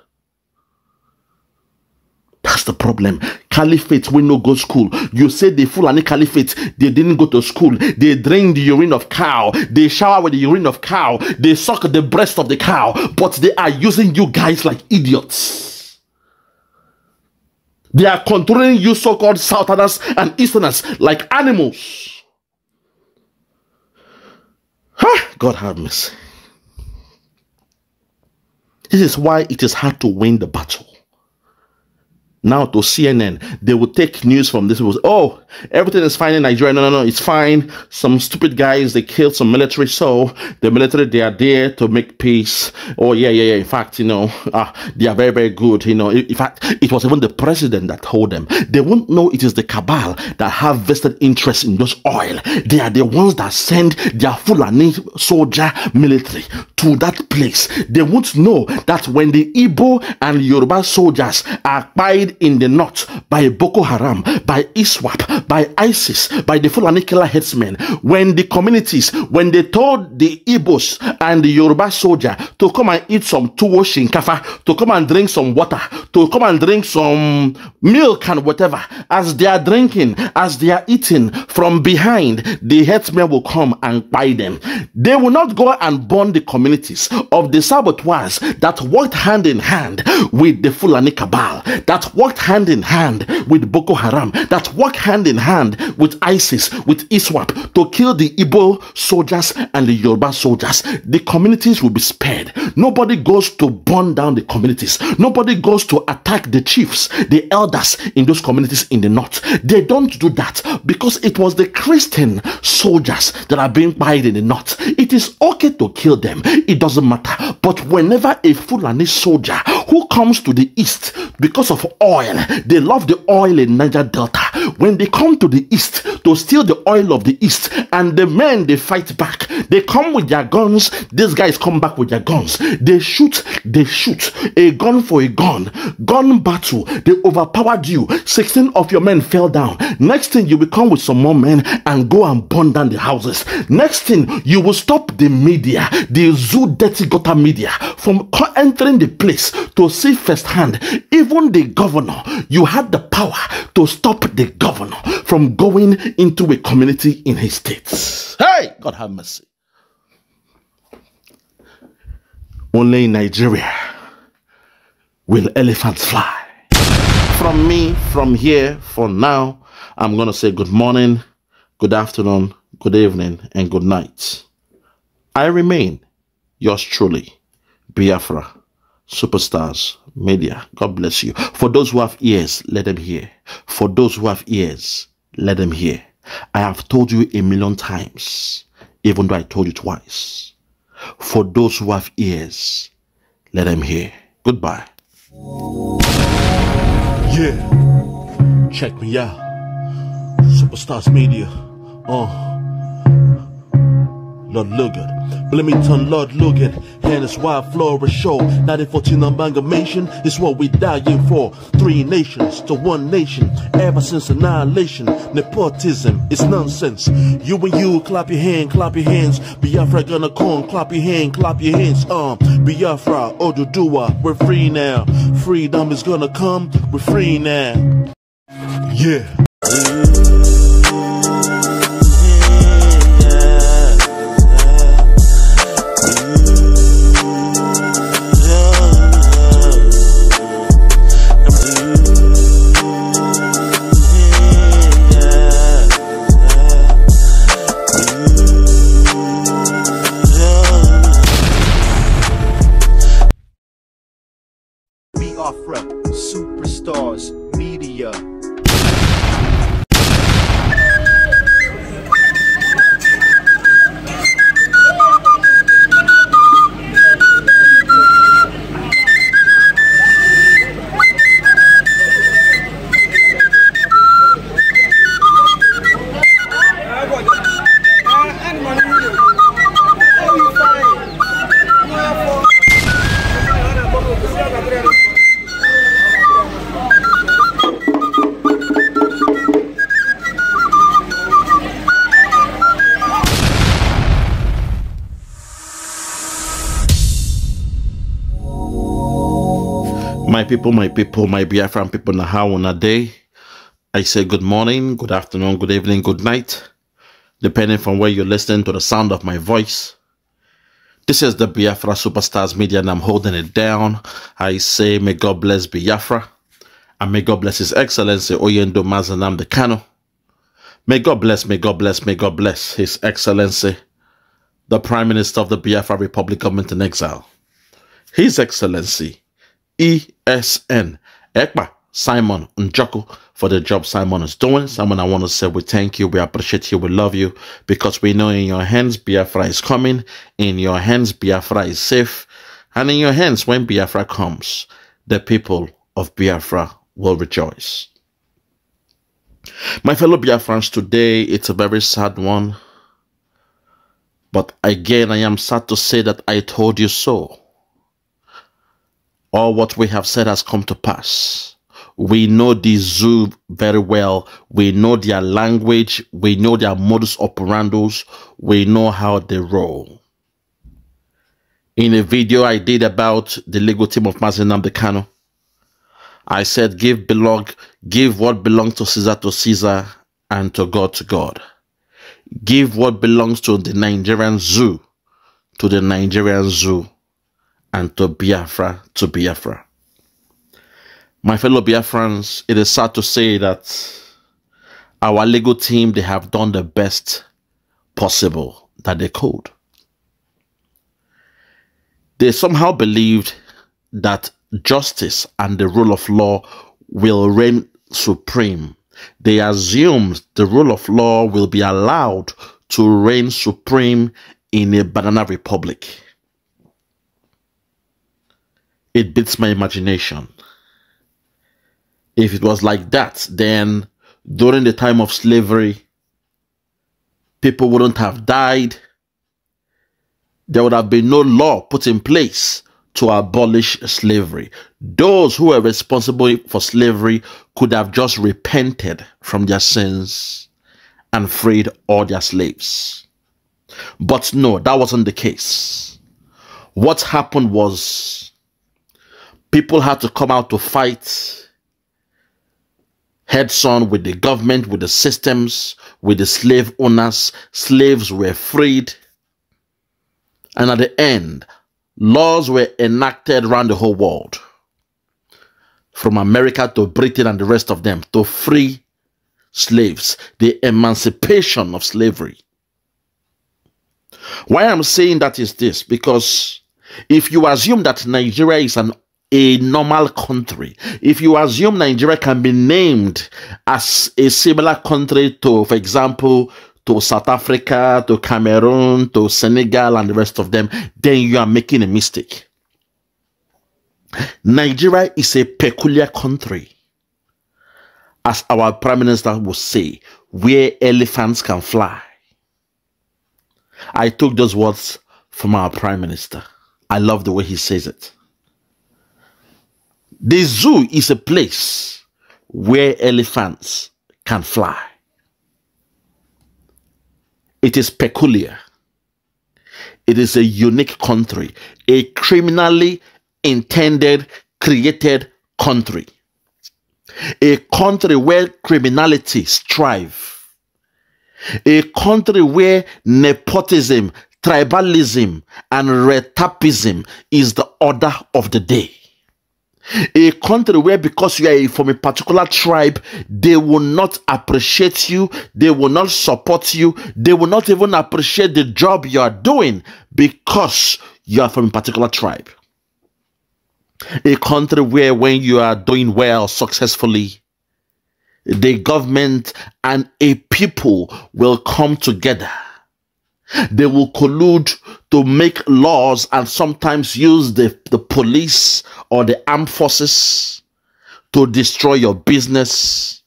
That's the problem. Caliphate, we no go school. You say the Fulani Caliphate, they didn't go to school. They drain the urine of cow. They shower with the urine of cow. They suck the breast of the cow. But they are using you guys like idiots. They are controlling you so-called Southerners and Easterners like animals. Huh? God have mercy. This is why it is hard to win the battle now to CNN. They will take news from this. Was, oh, everything is fine in Nigeria. No, no, no, it's fine. Some stupid guys, they killed some military. So the military, they are there to make peace. Oh, yeah, yeah, yeah. In fact, you know, ah, they are very, very good. You know, in fact, it was even the president that told them. They won't know it is the cabal that have vested interest in those oil. They are the ones that send their Fulani soldier military to that place. They won't know that when the Igbo and Yoruba soldiers are pied in the north by Boko Haram, by ISWAP, by ISIS, by the Fulani killer headsmen. When the communities, when they told the Igbos and the Yoruba soldier to come and eat some tuwo shinkafa, to come and drink some water, to come and drink some milk and whatever, as they are drinking, as they are eating, from behind, the headsmen will come and buy them. They will not go and burn the communities of the saboteurs that worked hand in hand with the Fulani cabal, that worked hand in hand with Boko Haram, that worked hand in hand with ISIS, with ISWAP to kill the Igbo soldiers and the Yoruba soldiers. The communities will be spared. Nobody goes to burn down the communities. Nobody goes to attack the chiefs, the elders in those communities in the north. They don't do that because it was the Christian soldiers that are being buried in the north. It is okay to kill them. It doesn't matter. But whenever a Fulani soldier who comes to the east because of oil. They love the oil in Niger Delta. When they come to the east to steal the oil of the east, and the men they fight back. They come with their guns. These guys come back with their guns. They shoot. They shoot. A gun for a gun. Gun battle. They overpowered you. Sixteen of your men fell down. Next thing you will come with some more men and go and burn down the houses. Next thing you will stop the media, the zoo dirty gutter media from entering the place to see firsthand. Even the government governor, you had the power to stop the governor from going into a community in his states. Hey, God have mercy. Only in Nigeria will elephants fly. From me, from here, for now, I'm going to say good morning, good afternoon, good evening, and good night. I remain yours truly, Biafra superstars, media. God bless you. For those who have ears, let them hear. For those who have ears, let them hear. I have told you a million times, even though I told you twice. For those who have ears, let them hear. Goodbye. Yeah, check me out. Superstars Media. Oh. Uh. Lord Logan. Bloomington, Lord Logan, and it's why I flourish show. 1914 amalgamation is what we dying for. Three nations to one nation, ever since annihilation. Nepotism is nonsense. You and you, clap your hand, clap your hands. Biafra gonna come, clap your hand, clap your hands. Um, Biafra, Odudua, we're free now. Freedom is gonna come, we're free now. Yeah. people, my people, my Biafran people, na how on a day. I say good morning, good afternoon, good evening, good night, depending from where you're listening to the sound of my voice. This is the Biafra Superstars Media, and I'm holding it down. I say, may God bless Biafra, and may God bless His Excellency Oyendo Mazanam the Kano. May God bless, may God bless, may God bless His Excellency, the Prime Minister of the Biafra Republic of in Exile. His Excellency, ESN. Ekpa Simon Njoku for the job Simon is doing. Simon, I want to say we thank you, we appreciate you, we love you because we know in your hands Biafra is coming, in your hands Biafra is safe, and in your hands when Biafra comes, the people of Biafra will rejoice. My fellow Biafrans, today it's a very sad one, but again I am sad to say that I told you so all what we have said has come to pass. We know the zoo very well. We know their language. We know their modus operandi. We know how they roll. In a video I did about the legal team of Mazenam Decano, I said, give belong, give what belongs to Caesar to Caesar and to God to God. Give what belongs to the Nigerian zoo to the Nigerian zoo and to Biafra to Biafra. My fellow Biafrans, it is sad to say that our legal team, they have done the best possible that they could. They somehow believed that justice and the rule of law will reign supreme. They assumed the rule of law will be allowed to reign supreme in a banana republic it beats my imagination. If it was like that, then during the time of slavery, people wouldn't have died. There would have been no law put in place to abolish slavery. Those who were responsible for slavery could have just repented from their sins and freed all their slaves. But no, that wasn't the case. What happened was people had to come out to fight heads on with the government, with the systems, with the slave owners. Slaves were freed. And at the end, laws were enacted around the whole world, from America to Britain and the rest of them, to free slaves, the emancipation of slavery. Why I'm saying that is this because if you assume that Nigeria is an a normal country. If you assume Nigeria can be named as a similar country to, for example, to South Africa, to Cameroon, to Senegal, and the rest of them, then you are making a mistake. Nigeria is a peculiar country, as our Prime Minister would say, where elephants can fly. I took those words from our Prime Minister. I love the way he says it. The zoo is a place where elephants can fly. It is peculiar. It is a unique country, a criminally intended, created country. A country where criminality strive. A country where nepotism, tribalism, and retapism is the order of the day a country where because you are from a particular tribe they will not appreciate you they will not support you they will not even appreciate the job you are doing because you are from a particular tribe a country where when you are doing well successfully the government and a people will come together they will collude to make laws and sometimes use the, the police or the armed forces to destroy your business,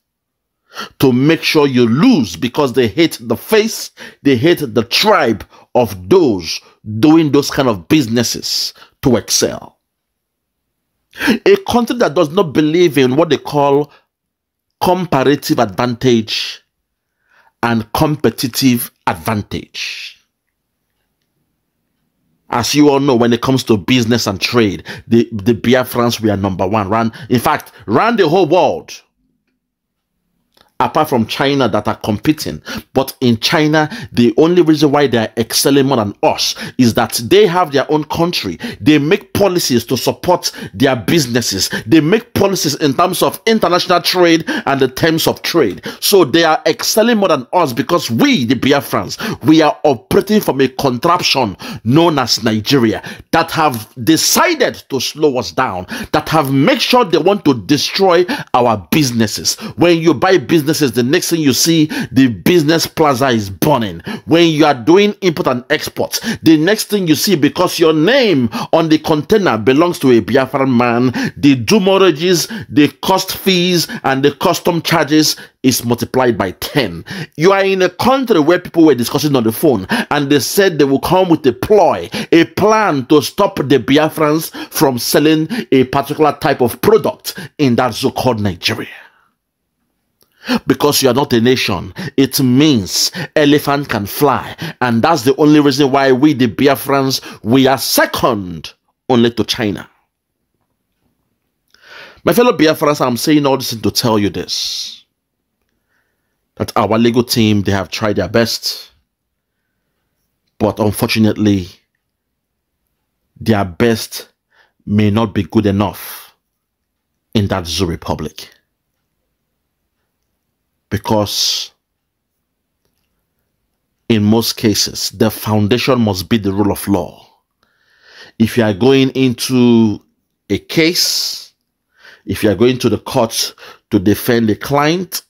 to make sure you lose because they hate the face, they hate the tribe of those doing those kind of businesses to excel. A country that does not believe in what they call comparative advantage and competitive advantage as you all know, when it comes to business and trade, the, the Biafrans are number one. Ran, in fact, ran the whole world apart from China that are competing. But in China, the only reason why they are excelling more than us is that they have their own country. They make policies to support their businesses. They make policies in terms of international trade and the terms of trade. So they are excelling more than us because we, the Biafrans, we are operating from a contraption known as Nigeria that have decided to slow us down, that have made sure they want to destroy our businesses. When you buy business businesses, the next thing you see, the business plaza is burning. When you are doing import and export, the next thing you see, because your name on the container belongs to a Biafran man, the dumorrages, the cost fees, and the custom charges is multiplied by 10. You are in a country where people were discussing on the phone and they said they will come with a ploy, a plan to stop the Biafrans from selling a particular type of product in that so called Nigeria because you are not a nation. It means elephant can fly. And that's the only reason why we, the Biafrans, we are second only to China. My fellow Biafrans, I'm saying all this to tell you this. That our legal team, they have tried their best. But unfortunately, their best may not be good enough in that zoo republic because in most cases, the foundation must be the rule of law. If you are going into a case, if you are going to the court to defend a client,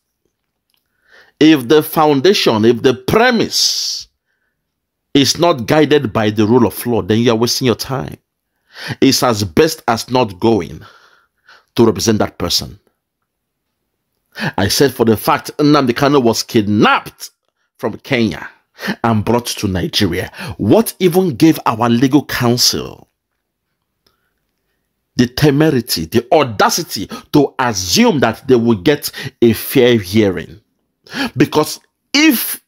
if the foundation, if the premise is not guided by the rule of law, then you are wasting your time. It's as best as not going to represent that person. I said for the fact Nnamdi Kano was kidnapped from Kenya and brought to Nigeria. What even gave our legal counsel the temerity, the audacity to assume that they will get a fair hearing? Because if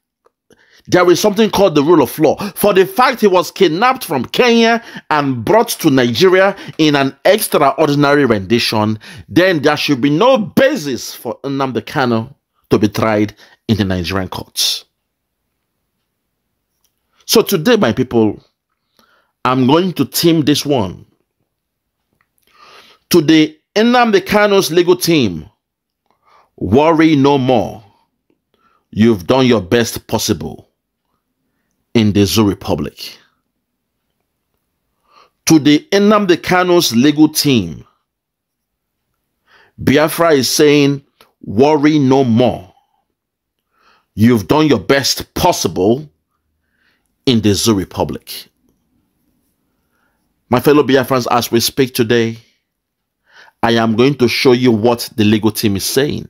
there is something called the rule of law. For the fact he was kidnapped from Kenya and brought to Nigeria in an extraordinary rendition, then there should be no basis for Nnamdi Kano to be tried in the Nigerian courts. So today, my people, I'm going to team this one to the Nnamdi Kano's legal team. Worry no more. You've done your best possible in the Zoo Republic. To the Enamde Kano's legal team, Biafra is saying, worry no more. You've done your best possible in the Zoo Republic. My fellow Biafrans, as we speak today, I am going to show you what the legal team is saying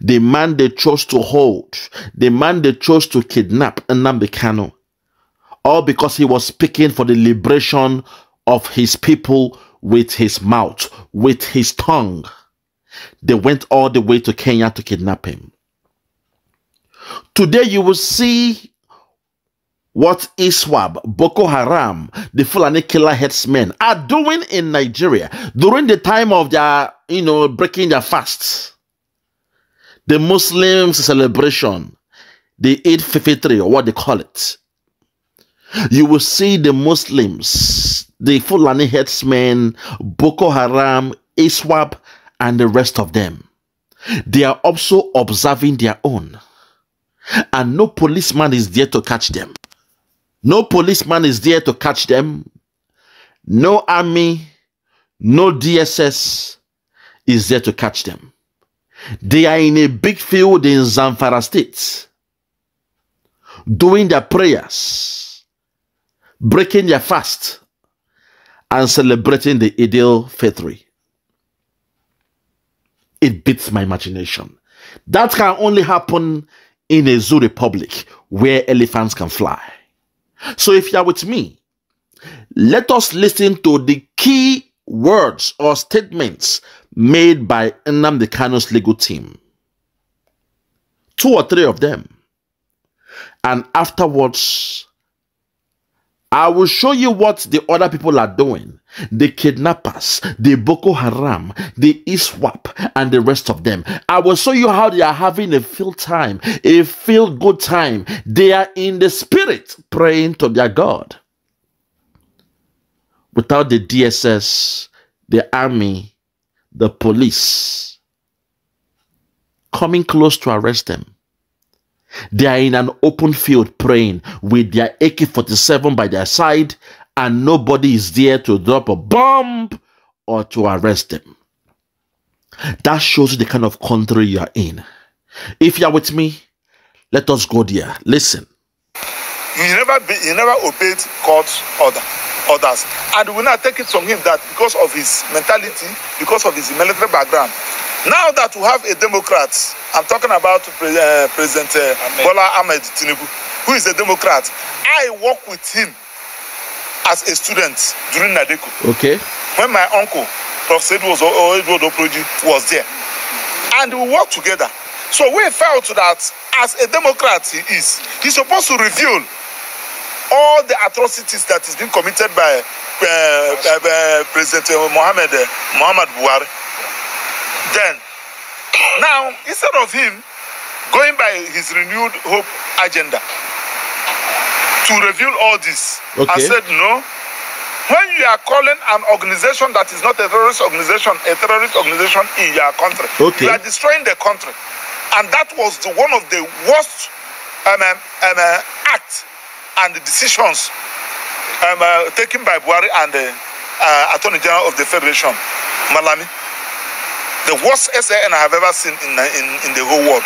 the man they chose to hold, the man they chose to kidnap Nnamdi all because he was speaking for the liberation of his people with his mouth, with his tongue. They went all the way to Kenya to kidnap him. Today you will see what Iswab, Boko Haram, the Fulani killer headsmen are doing in Nigeria during the time of their, you know, breaking their fasts the Muslims celebration, they eat fifitri or what they call it. You will see the Muslims, the Fulani headsmen, Boko Haram, Iswap, and the rest of them. They are also observing their own. And no policeman is there to catch them. No policeman is there to catch them. No army, no DSS is there to catch them. They are in a big field in Zamfara State doing their prayers, breaking their fast, and celebrating the ideal fitri. It beats my imagination. That can only happen in a zoo republic where elephants can fly. So if you are with me, let us listen to the key words or statements made by the Canos legal team. Two or three of them. And afterwards, I will show you what the other people are doing. The kidnappers, the Boko Haram, the ISWAP, and the rest of them. I will show you how they are having a feel time, a feel good time. They are in the spirit praying to their God. Without the DSS, the army, the police coming close to arrest them. They are in an open field praying with their AK 47 by their side, and nobody is there to drop a bomb or to arrest them. That shows you the kind of country you are in. If you are with me, let us go there. Listen. You never, be, you never obeyed God's order. others and we now take it from him that because of his mentality because of his military background now that we have a democrat i'm talking about pre uh, president uh, bola ahmed tinubu who is a democrat i work with him as a student during Nadeko. okay when my uncle prof sedwos oedodoproji was there and we work together so we felt that as a democrat he is He supposed to reveal all the atrocities that is being committed by uh, uh, uh, President uh, Mohammed uh, Muhammad Buhari. Then, now instead of him going by his renewed hope agenda to reveal all this, okay. I said no. When you are calling an organization that is not a terrorist organization, a terrorist organization in your country, okay. you are destroying the country, and that was the, one of the worst um, um, um uh, acts and the decisions um, uh, taken by Buhari and the uh, Attorney General of the Federation, Malami. The worst SAN I have ever seen in, in, in the whole world.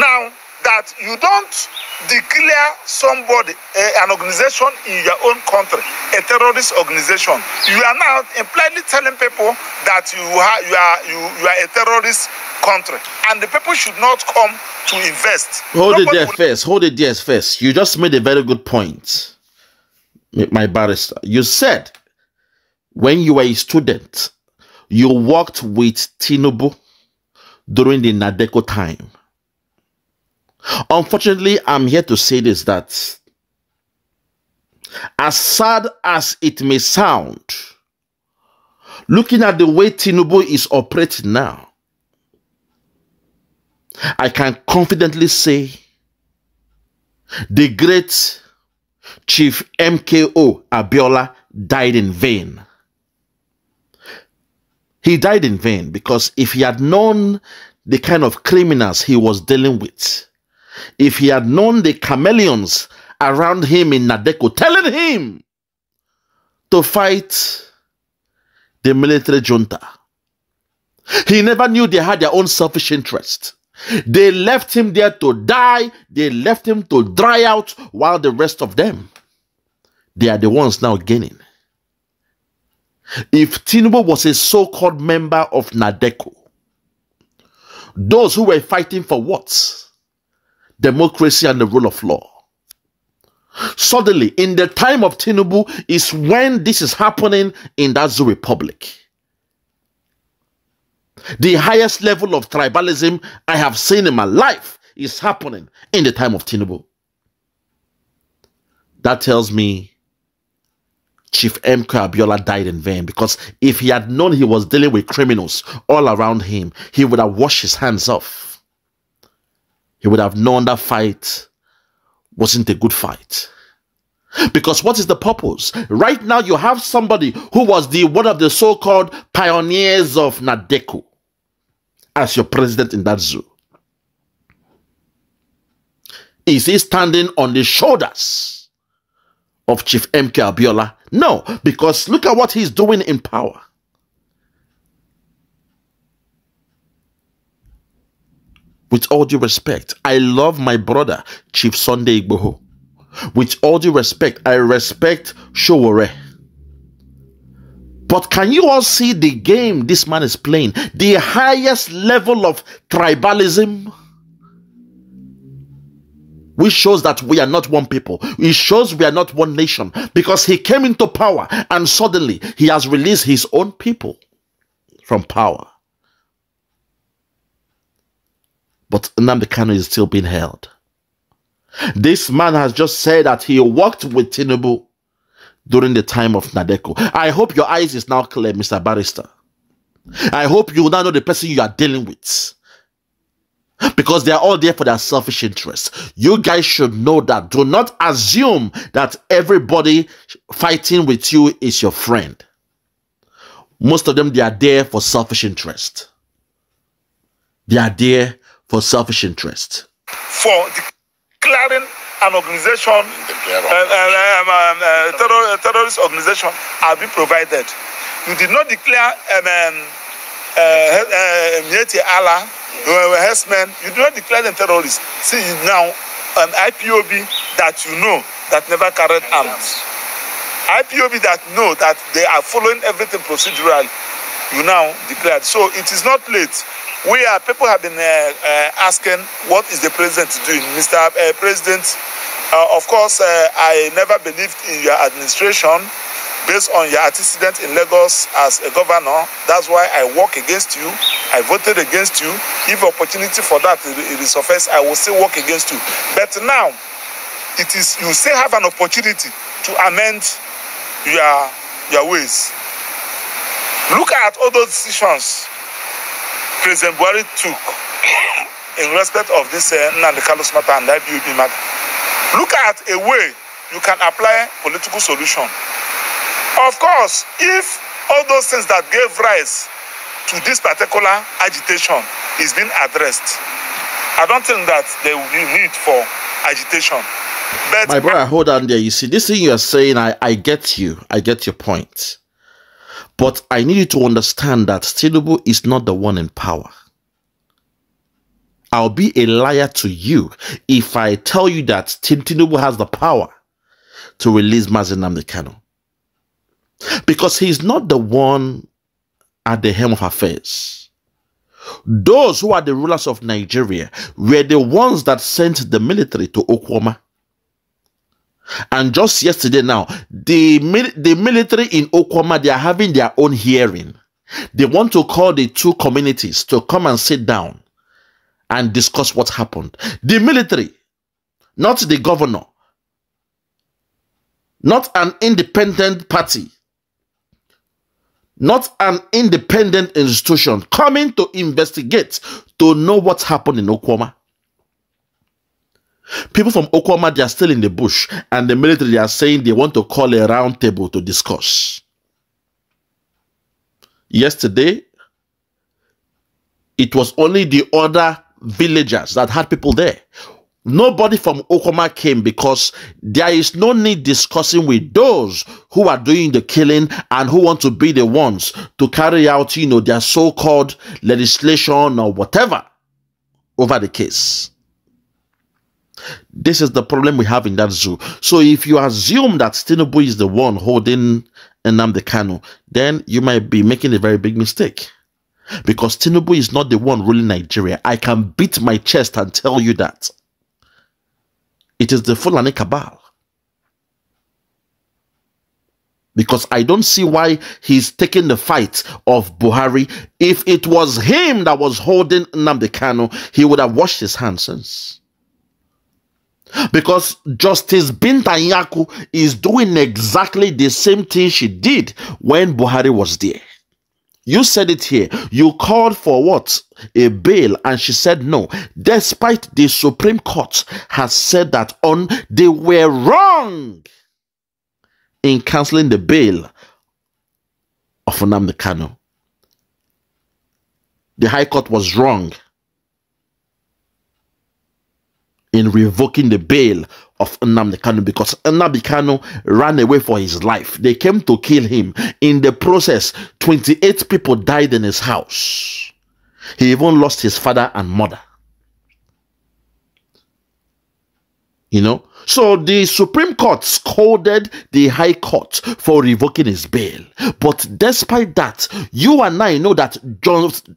Now, that you don't declare somebody, uh, an organization in your own country, a terrorist organization. You are now plainly telling people that you are, you are, you, you are a terrorist country. And the people should not come to invest. Hold Nobody it there will... first. Hold it there first. You just made a very good point, my barrister. You said when you were a student, you worked with Tinubu during the Nadeko time Unfortunately, I'm here to say this that as sad as it may sound, looking at the way Tinubu is operating now, I can confidently say the great Chief MKO Abiola died in vain. He died in vain because if he had known the kind of criminals he was dealing with, if he had known the chameleons around him in Nadeko telling him to fight the military junta. He never knew they had their own selfish interest. They left him there to die. They left him to dry out while the rest of them, they are the ones now gaining. If Tinubu was a so-called member of Nadeko, those who were fighting for what? democracy and the rule of law. Suddenly, in the time of Tinubu, is when this is happening in that Zoo Republic. The highest level of tribalism I have seen in my life is happening in the time of Tinubu. That tells me Chief M. Abiola died in vain because if he had known he was dealing with criminals all around him, he would have washed his hands off he would have known that fight wasn't a good fight. Because what is the purpose? Right now, you have somebody who was the one of the so-called pioneers of Nadeku as your president in that zoo. Is he standing on the shoulders of Chief MK Abiola? No, because look at what he's doing in power. With all due respect, I love my brother, Chief Sunday Igboho. With all due respect, I respect Showore. But can you all see the game this man is playing? The highest level of tribalism, which shows that we are not one people. It shows we are not one nation because he came into power and suddenly he has released his own people from power. But Nnamdi is still being held. This man has just said that he worked with Tinubu during the time of Nadeko. I hope your eyes is now clear, Mr. Barrister. I hope you now know the person you are dealing with. Because they are all there for their selfish interests. You guys should know that. Do not assume that everybody fighting with you is your friend. Most of them, they are there for selfish interest. They are there for selfish interest. For declaring an organization, uh, um, um, uh, terror, uh, terrorist organization, have been provided. You did not declare um, Mieti um, uh, um, Allah, uh, uh, Hessman, you did not declare them terrorists. See, now an IPOB that you know that never carried arms. IPOB that know that they are following everything procedurally, you now declared. So it is not late. we are people have been uh, uh, asking what is the president doing mr uh, president uh, of course uh, i never believed in your administration based on your antecedent in lagos as a governor that's why i work against you i voted against you if opportunity for that resurface i will still work against you but now it is you still have an opportunity to amend your your ways look at all those decisions President Buhari took in respect of this uh, Nnamdi Kalu's matter and IBOB matter. Look at a way you can apply political solution. Of course, if all those things that gave rise to this particular agitation is being addressed, I don't think that there will be need for agitation. But My brother, hold on there. You see, this thing you are saying, I, I get you. I get your point. But I need you to understand that Tinubu is not the one in power. I'll be a liar to you if I tell you that Tinubu has the power to release Mazin Namdekano. Because he's not the one at the helm of affairs. Those who are the rulers of Nigeria were the ones that sent the military to Okwama. And just yesterday now, the, the military in Okwama, they are having their own hearing. They want to call the two communities to come and sit down and discuss what happened. The military, not the governor, not an independent party, not an independent institution coming to investigate to know what happened in Okwama. People from Okwama, they are still in the bush, and the military, they are saying they want to call a roundtable to discuss. Yesterday, it was only the other villagers that had people there. Nobody from Okoma came because there is no need discussing with those who are doing the killing and who want to be the ones to carry out, you know, their so-called legislation or whatever over the case. This is the problem we have in that zoo. So if you assume that Tinubu is the one holding Nnamdi Kanu, then you might be making a very big mistake. Because Tinubu is not the one ruling Nigeria. I can beat my chest and tell you that. It is the Fulani cabal. Because I don't see why he's taking the fight of Buhari. If it was him that was holding Nnamdi Kanu, he would have washed his hands since. Because Justice Bintanyaku is doing exactly the same thing she did when Buhari was there. You said it here. You called for what? A bail, and she said no, despite the Supreme Court has said that on they were wrong in canceling the bail of Nnamdi Kanu. The High Court was wrong in revoking the bail of Nnamdi Kanu because Nnamdi Kanu ran away for his life. They came to kill him. In the process, 28 people died in his house. He even lost his father and mother. You know, so the Supreme Court scolded the High Court for revoking his bail. But despite that, you and I know that just,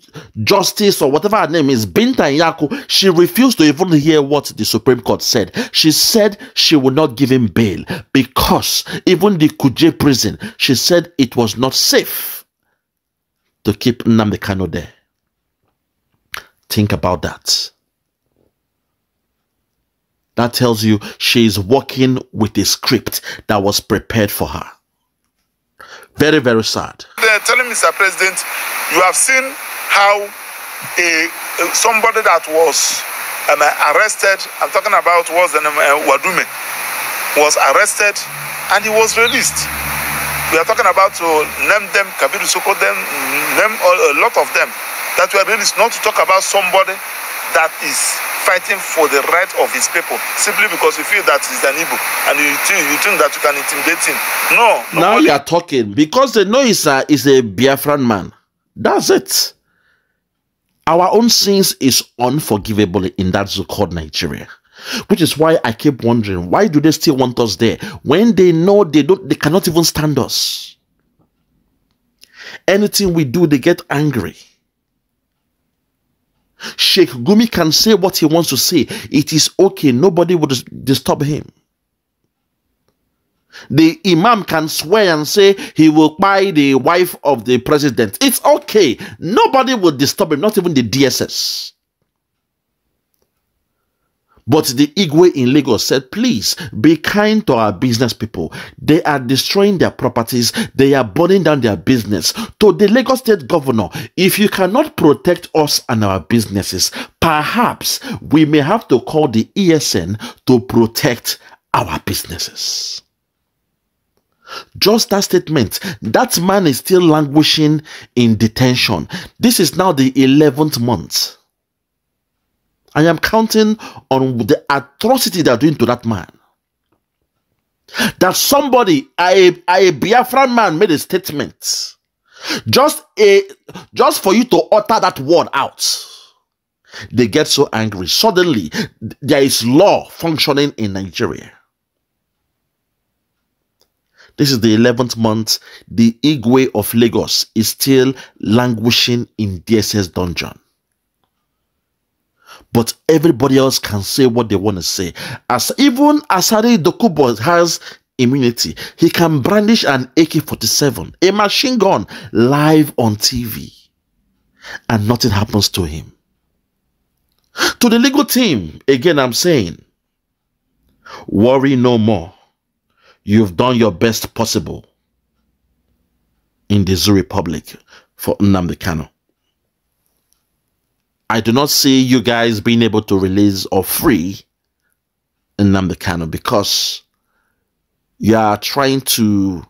Justice or whatever her name is, Binta Yaku, she refused to even hear what the Supreme Court said. She said she would not give him bail because even the Kuje prison, she said it was not safe to keep Namdekano there. Think about that. That tells you she is working with a script that was prepared for her. Very, very sad. They're telling Mr. President, you have seen how a, somebody that was um, arrested, I'm talking about was the um, name, uh, Wadume, was arrested and he was released. We are talking about to uh, name them, Kabiru Soko, them, name a lot of them that were released, not to talk about somebody that is fighting for the right of his people simply because you feel that he's an Igbo and you think, you think that you can intimidate him. No. Now you are talking because the know is a, a Biafran man. That's it. Our own sins is unforgivable in that so-called Nigeria. Which is why I keep wondering, why do they still want us there when they know they don't they cannot even stand us? Anything we do, they get angry. Sheikh Gumi can say what he wants to say. It is okay. Nobody will disturb him. The imam can swear and say he will buy the wife of the president. It's okay. Nobody will disturb him, not even the DSS. But the Igwe in Lagos said, please be kind to our business people. They are destroying their properties. They are burning down their business. To the Lagos state governor, if you cannot protect us and our businesses, perhaps we may have to call the ESN to protect our businesses. Just that statement, that man is still languishing in detention. This is now the 11th month. I am counting on the atrocity they are doing to that man. That somebody, a, a Biafran man, made a statement. Just a just for you to utter that word out. They get so angry. Suddenly, there is law functioning in Nigeria. This is the 11th month. The Igwe of Lagos is still languishing in DSS dungeon but everybody else can say what they want to say. As even Asari Dokubo has immunity, he can brandish an AK-47, a machine gun, live on TV, and nothing happens to him. To the legal team, again, I'm saying, worry no more. You've done your best possible in the Zoo Republic for Nnamdi Kano. I do not see you guys being able to release or free in Kano because you are trying to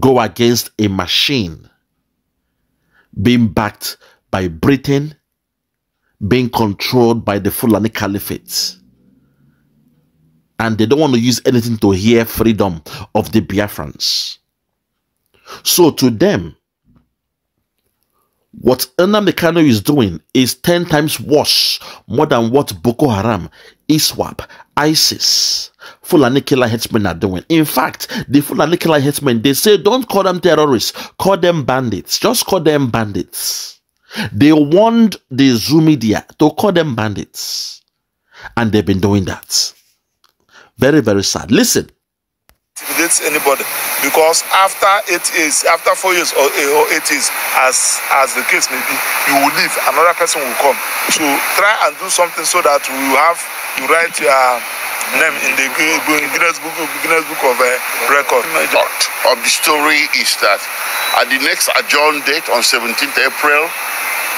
go against a machine being backed by Britain, being controlled by the Fulani Caliphate. And they don't want to use anything to hear freedom of the Biafrans. So to them, what Nnamdi Kano is doing is 10 times worse more than what Boko Haram, ISWAP, ISIS, Fulani killer headsmen are doing. In fact, the Fulani killer headsmen, they say don't call them terrorists, call them bandits. Just call them bandits. They warned the Zoomedia media to call them bandits. And they've been doing that. Very, very sad. Listen, intimidates anybody because after eight years after four years or, eh, or eight years as as the case may be you will leave another person will come so try and do something so that we have you write your name in the Guinness Book, Guinness Book of uh, Record. Part of the story is that at the next adjourned date on 17th April,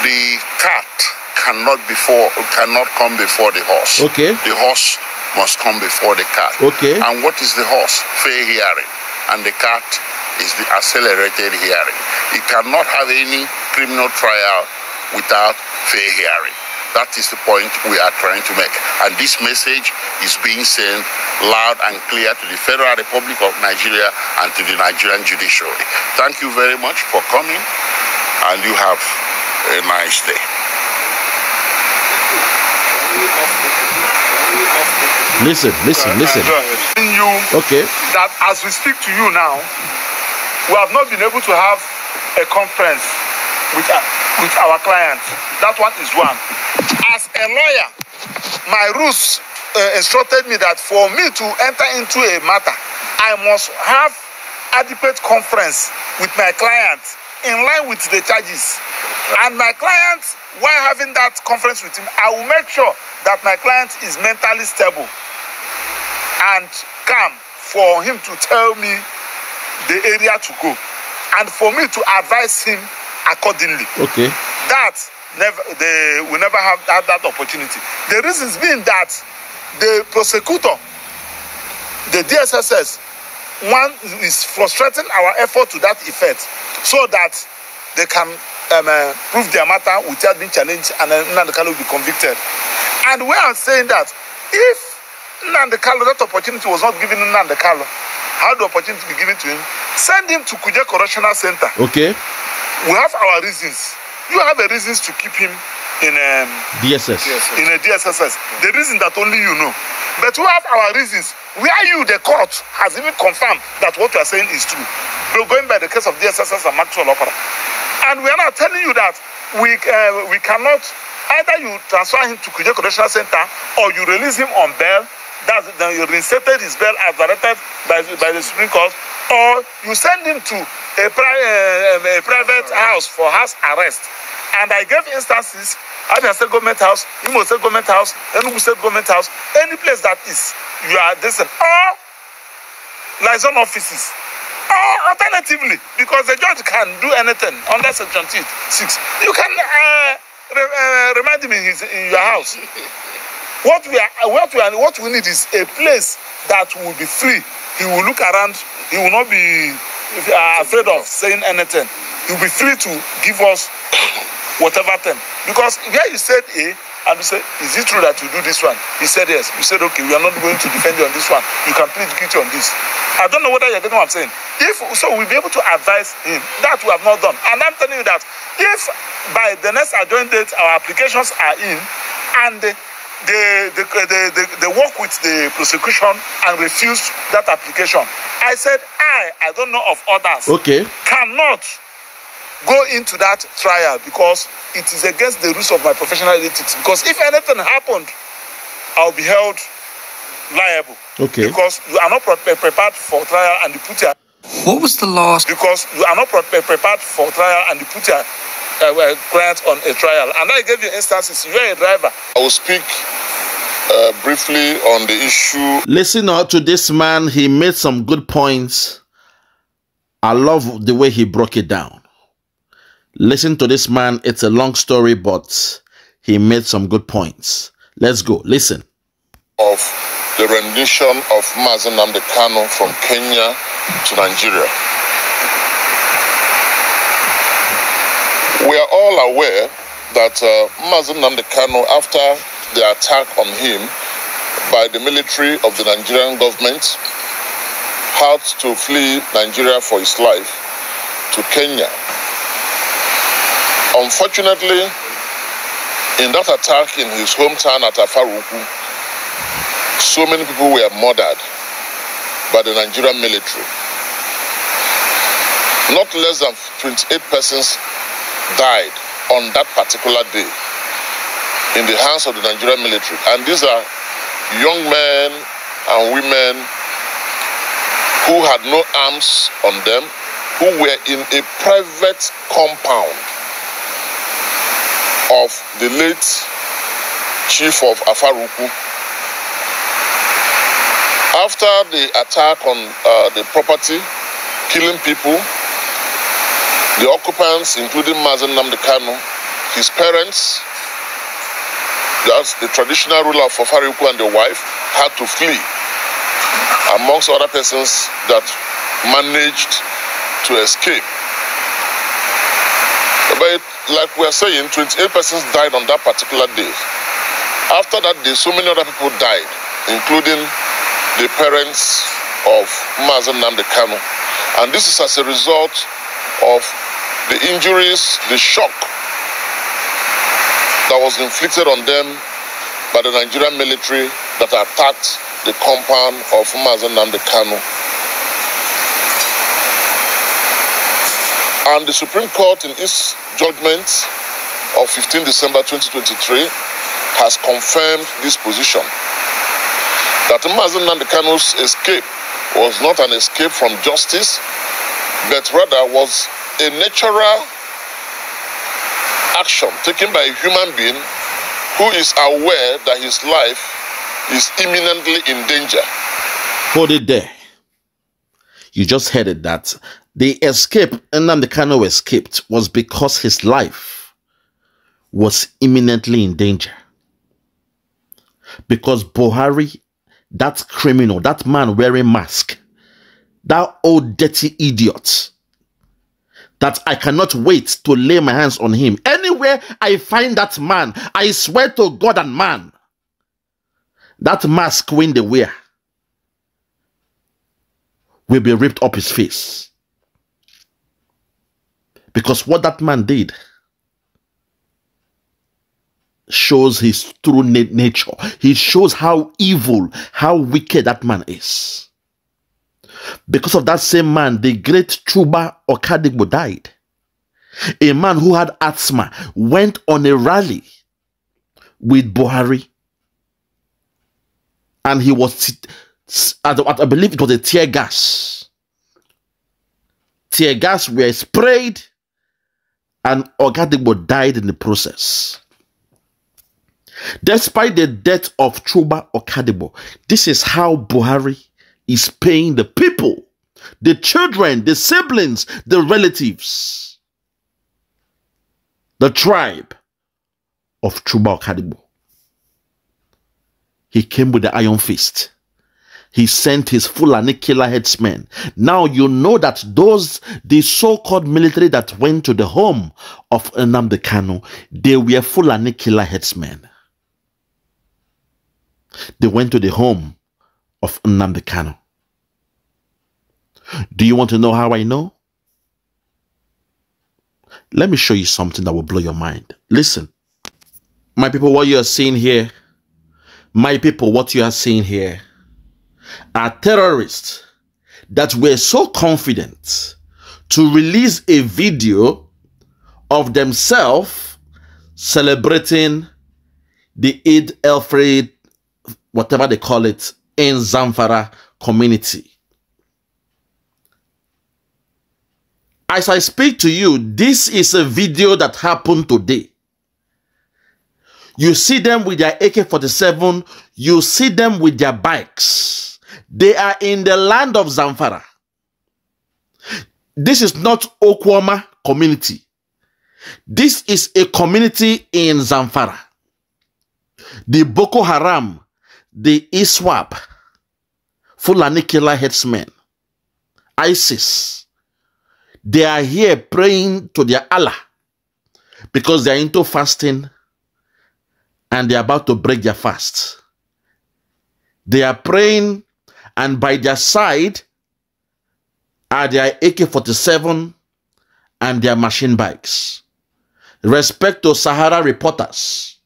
the cat cannot before cannot come before the horse. Okay. The horse must come before the court. Okay. And what is the horse? Fair hearing. And the court is the accelerated hearing. It cannot have any criminal trial without fair hearing. That is the point we are trying to make. And this message is being sent loud and clear to the Federal Republic of Nigeria and to the Nigerian judiciary. Thank you very much for coming, and you have a nice day. Listen, listen, listen. You okay. That as we speak to you now, we have not been able to have a conference with our, uh, with our clients. That one is one. As a lawyer, my rules uh, instructed me that for me to enter into a matter, I must have adequate conference with my client in line with the charges. And my client, while having that conference with him, I will make sure that my client is mentally stable and come for him to tell me the area to go and for me to advise him accordingly. Okay. That never they will never have that, that opportunity. The reasons being that the prosecutor, the DSSS, one is frustrating our effort to that effect so that they can um, uh, prove their matter without being challenged and then uh, will be convicted. And we are saying that if Nande Kalo, that opportunity was not given Nande Kalo. How the opportunity be given to him? Send him to Kuja Correctional Center. Okay. We have our reasons. You have the reasons to keep him in um, DSS. DSS. In a DSSS. The reason that only you know. But we have our reasons. Where you, the court, has even confirmed that what you are saying is true. We're going by the case of DSSS and Maxwell Opera. And we are now telling you that we, uh, we cannot, either you transfer him to Kuja Correctional Center or you release him on bail That then you reinstated his bail as directed by, by the Supreme Court, or you send him to a, pri- eh, eh, a private house for house arrest. And I gave instances Abia State Government House, Imo State Government House, Enugu State Government House, any place that is, you are this, or liaison offices. Or alternatively, because the judge can do anything under Section 6, you can uh, re- uh, remind him in, his, in your house what we are what we are what we need is a place that will be free he will look around he will not be uh, afraid of saying anything he will be free to give us whatever thing because where you said a and you say is it true that you do this one he said yes you said okay we are not going to defend you on this one you can plead guilty on this i don't know whether you get what i'm saying if so we'll be able to advise him that we have not done and i'm telling you that if by the next adjourned date our applications are in and uh, they, they, they, they, they work with the prosecution and refuse that application. I said, I, I don't know of others, okay. cannot go into that trial because it is against the rules of my professional ethics. Because if anything happened, I'll be held liable. Okay. Because you are not pre- prepared for trial and you put your. What was the last? Because you are not pre- prepared for trial and you put your uh, well, on a trial. And I gave you instances. You are a driver. I will speak uh, briefly on the issue. Listen out to this man. He made some good points. I love the way he broke it down. Listen to this man. It's a long story, but he made some good points. Let's go. Listen. Of the rendition of Mazen Namdekano from Kenya to Nigeria. are all aware that uh, Mazin after the attack on him by the military of the Nigerian government, had to flee Nigeria for his life to Kenya. Unfortunately, in that attack in his hometown at Afaruku, so many people were murdered by the Nigerian military. Not less than 28 persons died on that particular day in the hands of the Nigerian military. And these are young men and women who had no arms on them, who were in a private compound of the late chief of Afaruku. After the attack on uh, the property, killing people, the occupants, including Mazen Namdekano, his parents, that's the traditional ruler of Fafariuku and the wife, had to flee, amongst other persons that managed to escape. But like we are saying, 28 persons died on that particular day. After that day, so many other people died, including the parents of Mazen Namdekano. And this is as a result of the injuries, the shock that was inflicted on them by the Nigerian military that attacked the compound of Mazen Namdekano. And the Supreme Court in its judgment of 15 December 2023 has confirmed this position that Mazen Namdekano's escape was not an escape from justice, but rather was a natural action taken by a human being who is aware that his life is imminently in danger. Put it there. You just heard it that the escape the Kano escaped was because his life was imminently in danger. Because Buhari, that criminal, that man wearing mask, that old dirty idiot, that I cannot wait to lay my hands on him. Anywhere I find that man, I swear to God and man, that mask when they wear will be ripped up his face. Because what that man did shows his true nature. He shows how evil, how wicked that man is. Because of that same man, the great Chuba Okadigbo died. A man who had asthma went on a rally with Buhari. And he was, I believe it was a tear gas. Tear gas were sprayed and Okadigbo died in the process. Despite the death of Chuba Okadibo, this is how Buhari is paying the people, the children, the siblings, the relatives, the tribe of Chuba Kadibu. He came with the iron fist. He sent his full killer headsmen. Now you know that those, the so-called military that went to the home of Nnamdi Kanu, they were full killer headsmen. They went to the home of Nnamdi Kanu. Do you want to know how I know? Let me show you something that will blow your mind. Listen, my people, what you are seeing here, my people, what you are seeing here are terrorists that were so confident to release a video of themselves celebrating the Eid El Fitr, whatever they call it, in Zamfara community. As I speak to you, this is a video that happened today. You see them with their AK-47. You see them with their bikes. They are in the land of Zamfara. This is not Okwama community. This is a community in Zamfara. The Boko Haram, the ISWAP, Fulani killer headsmen, ISIS, they are here praying to their Allah because they are into fasting and they are about to break their fast. They are praying, and by their side are their AK 47 and their machine bikes. Respect to Sahara reporters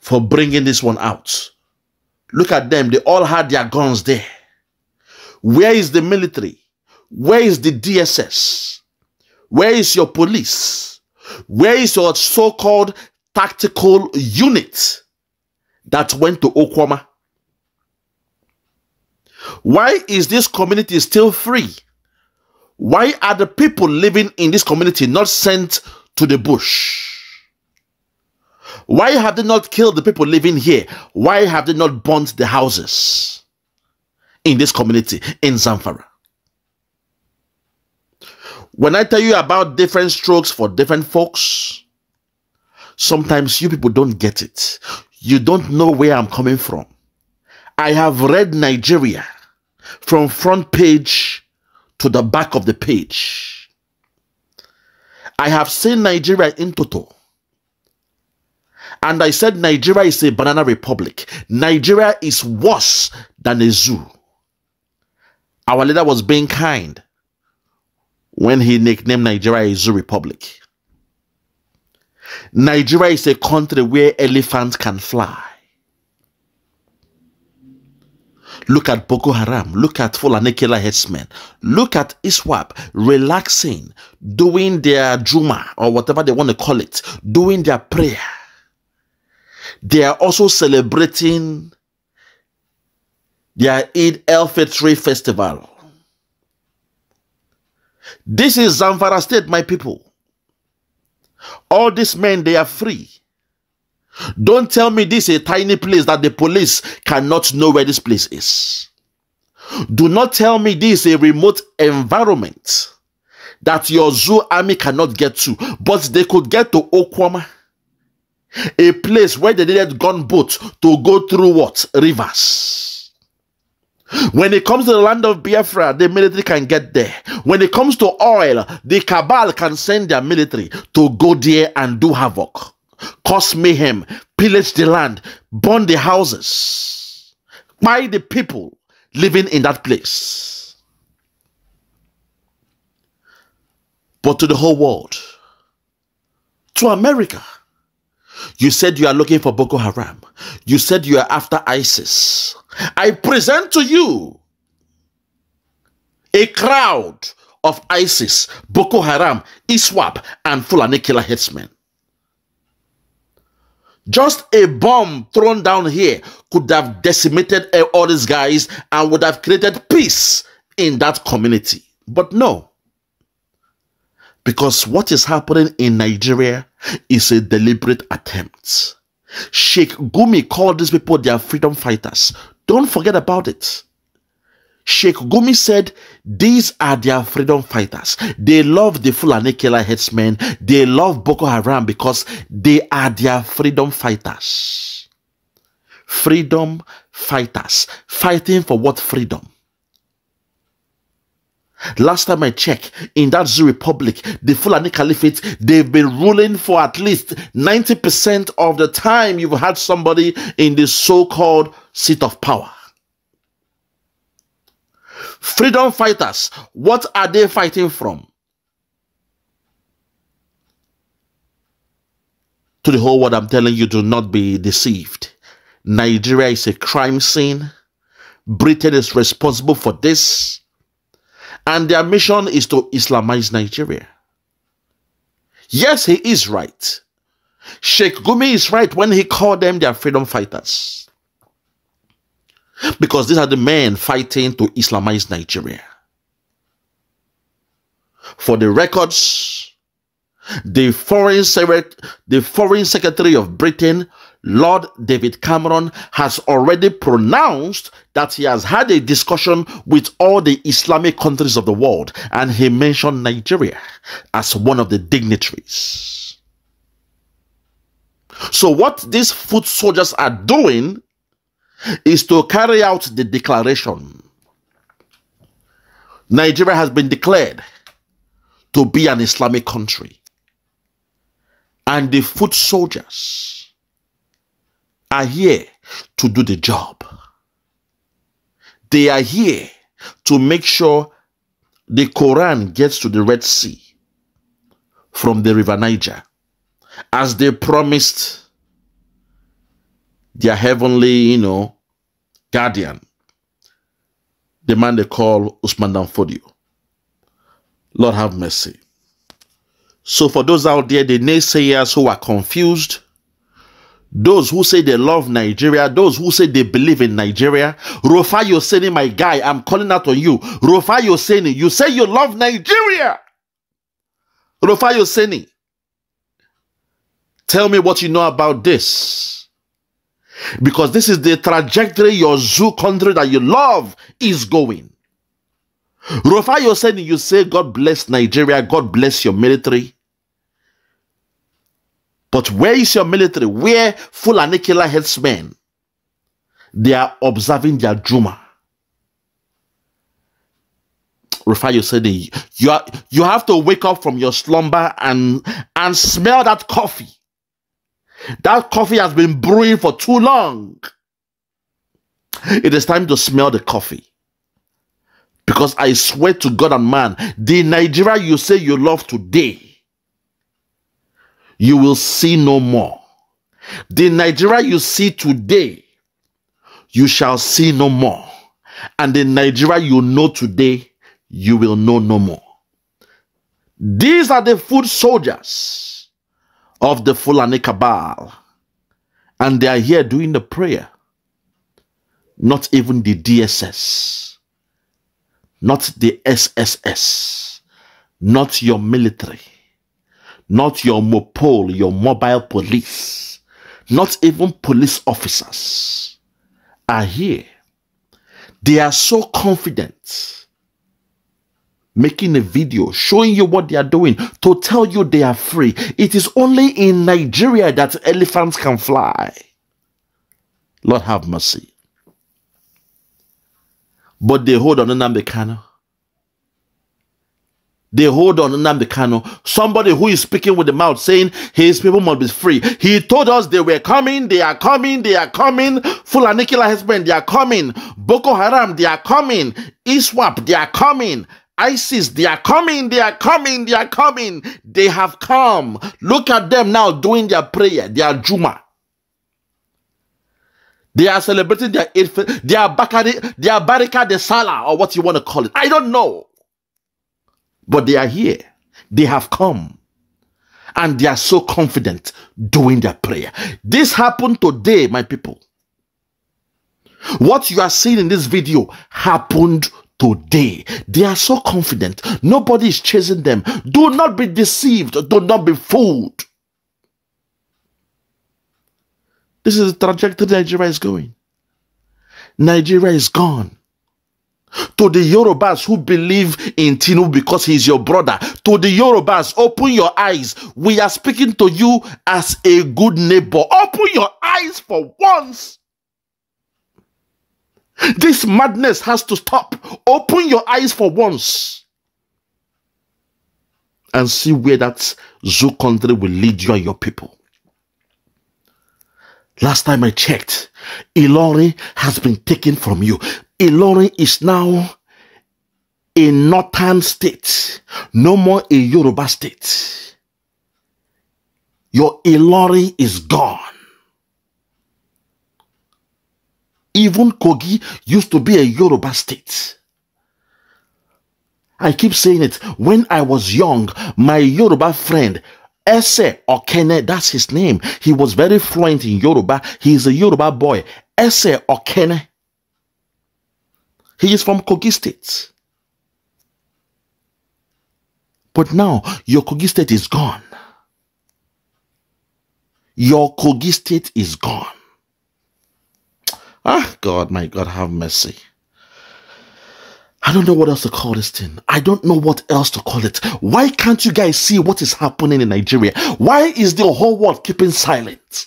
for bringing this one out. Look at them, they all had their guns there. Where is the military? Where is the DSS? Where is your police? Where is your so called tactical unit that went to Okwama? Why is this community still free? Why are the people living in this community not sent to the bush? Why have they not killed the people living here? Why have they not burnt the houses in this community in Zamfara? When I tell you about different strokes for different folks, sometimes you people don't get it. You don't know where I'm coming from. I have read Nigeria from front page to the back of the page. I have seen Nigeria in total. And I said Nigeria is a banana republic. Nigeria is worse than a zoo. Our leader was being kind when he nicknamed Nigeria a zoo republic. Nigeria is a country where elephants can fly. Look at Boko Haram. Look at Fulani Killer headsmen. Look at ISWAP relaxing, doing their Juma or whatever they want to call it, doing their prayer. They are also celebrating their Eid El Fitri festival. This is Zamfara State, my people. All these men, they are free. Don't tell me this is a tiny place that the police cannot know where this place is. Do not tell me this is a remote environment that your zoo army cannot get to, but they could get to Okwama, a place where they needed gunboats to go through what? Rivers. When it comes to the land of Biafra, the military can get there. When it comes to oil, the cabal can send their military to go there and do havoc, cause mayhem, pillage the land, burn the houses, buy the people living in that place. But to the whole world, to America, you said you are looking for Boko Haram. You said you are after ISIS. I present to you a crowd of ISIS, Boko Haram, ISWAP, and Fulani killer headsmen. Just a bomb thrown down here could have decimated all these guys and would have created peace in that community. But no. Because what is happening in Nigeria is a deliberate attempt. Sheikh Gumi called these people their freedom fighters. Don't forget about it. Sheikh Gumi said, These are their freedom fighters. They love the Fulani killer headsmen. They love Boko Haram because they are their freedom fighters. Freedom fighters. Fighting for what freedom? Last time I checked, in that Zulu Republic, the Fulani Caliphate, they've been ruling for at least 90% of the time you've had somebody in the so called seat of power. Freedom fighters, what are they fighting from? To the whole world, I'm telling you, do not be deceived. Nigeria is a crime scene. Britain is responsible for this and their mission is to Islamize Nigeria. Yes, he is right. Sheikh Gumi is right when he called them their freedom fighters. Because these are the men fighting to Islamize Nigeria. For the records, the foreign, the foreign secretary of Britain Lord David Cameron has already pronounced that he has had a discussion with all the Islamic countries of the world, and he mentioned Nigeria as one of the dignitaries. So, what these foot soldiers are doing is to carry out the declaration. Nigeria has been declared to be an Islamic country, and the foot soldiers are here to do the job. They are here to make sure the Quran gets to the Red Sea from the River Niger as they promised their heavenly, you know, guardian, the man they call Usman Danfodio. Lord have mercy. So for those out there, the naysayers who are confused, those who say they love Nigeria, those who say they believe in Nigeria. Rufai Yoseni, my guy, I'm calling out on you. Rufai Yoseni, you say you love Nigeria. Rufai Yoseni, tell me what you know about this. Because this is the trajectory your zoo country that you love is going. Rufai Yoseni, you say, God bless Nigeria, God bless your military. But where is your military? Where and killer headsmen? They are observing their Juma. Rufai Yosede, you, are, you have to wake up from your slumber and, and smell that coffee. That coffee has been brewing for too long. It is time to smell the coffee. Because I swear to God and man, the Nigeria you say you love today you will see no more. The Nigeria you see today, you shall see no more. And the Nigeria you know today, you will know no more. These are the foot soldiers of the Fulani Cabal. And they are here doing the prayer. Not even the DSS. Not the SSS. Not your military not your mopole, your mobile police, not even police officers are here. They are so confident making a video showing you what they are doing to tell you they are free. It is only in Nigeria that elephants can fly. Lord have mercy. But they hold on Nnamdi Kano they hold on the Kanu. Somebody who is speaking with the mouth saying his people must be free. He told us they were coming, they are coming, they are coming. Fulani killer husband, they are coming. Boko Haram, they are coming. ISWAP, they are coming. ISIS, they are coming, they are coming, they are coming. They have come. Look at them now doing their prayer, their Juma. They are celebrating their eighth, their Bakari, their Barika de or what you want to call it. I don't know. But they are here. They have come. And they are so confident doing their prayer. This happened today, my people. What you are seeing in this video happened today. They are so confident. Nobody is chasing them. Do not be deceived. Do not be fooled. This is the trajectory Nigeria is going. Nigeria is gone to the Yorubas who believe in Tinu because he is your brother, to the Yorubas, open your eyes. We are speaking to you as a good neighbor. Open your eyes for once. This madness has to stop. Open your eyes for once and see where that zoo country will lead you and your people. Last time I checked, Ilori has been taken from you. Ilorin is now a northern state, no more a Yoruba state. Your Ilorin is gone. Even Kogi used to be a Yoruba state. I keep saying it. When I was young, my Yoruba friend, Ese Okene, that's his name. He was very fluent in Yoruba. He is a Yoruba boy. Ese Okene he is from Kogi State. But now your Kogi State is gone. Your Kogi State is gone. Ah, God, my God, have mercy. I don't know what else to call this thing. I don't know what else to call it. Why can't you guys see what is happening in Nigeria? Why is the whole world keeping silent?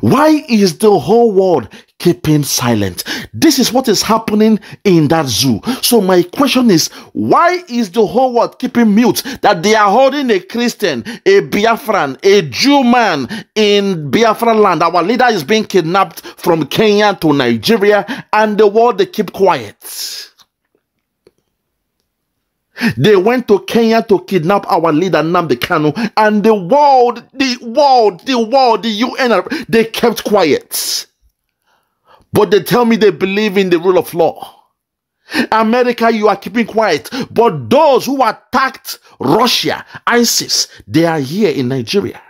Why is the whole world keeping silent? This is what is happening in that zoo. So, my question is why is the whole world keeping mute that they are holding a Christian, a Biafran, a Jew man in Biafran land? Our leader is being kidnapped from Kenya to Nigeria, and the world they keep quiet. They went to Kenya to kidnap our leader Nnamdi Kanu, and the world, the world, the world, the UN, they kept quiet. But they tell me they believe in the rule of law. America, you are keeping quiet. But those who attacked Russia, ISIS, they are here in Nigeria.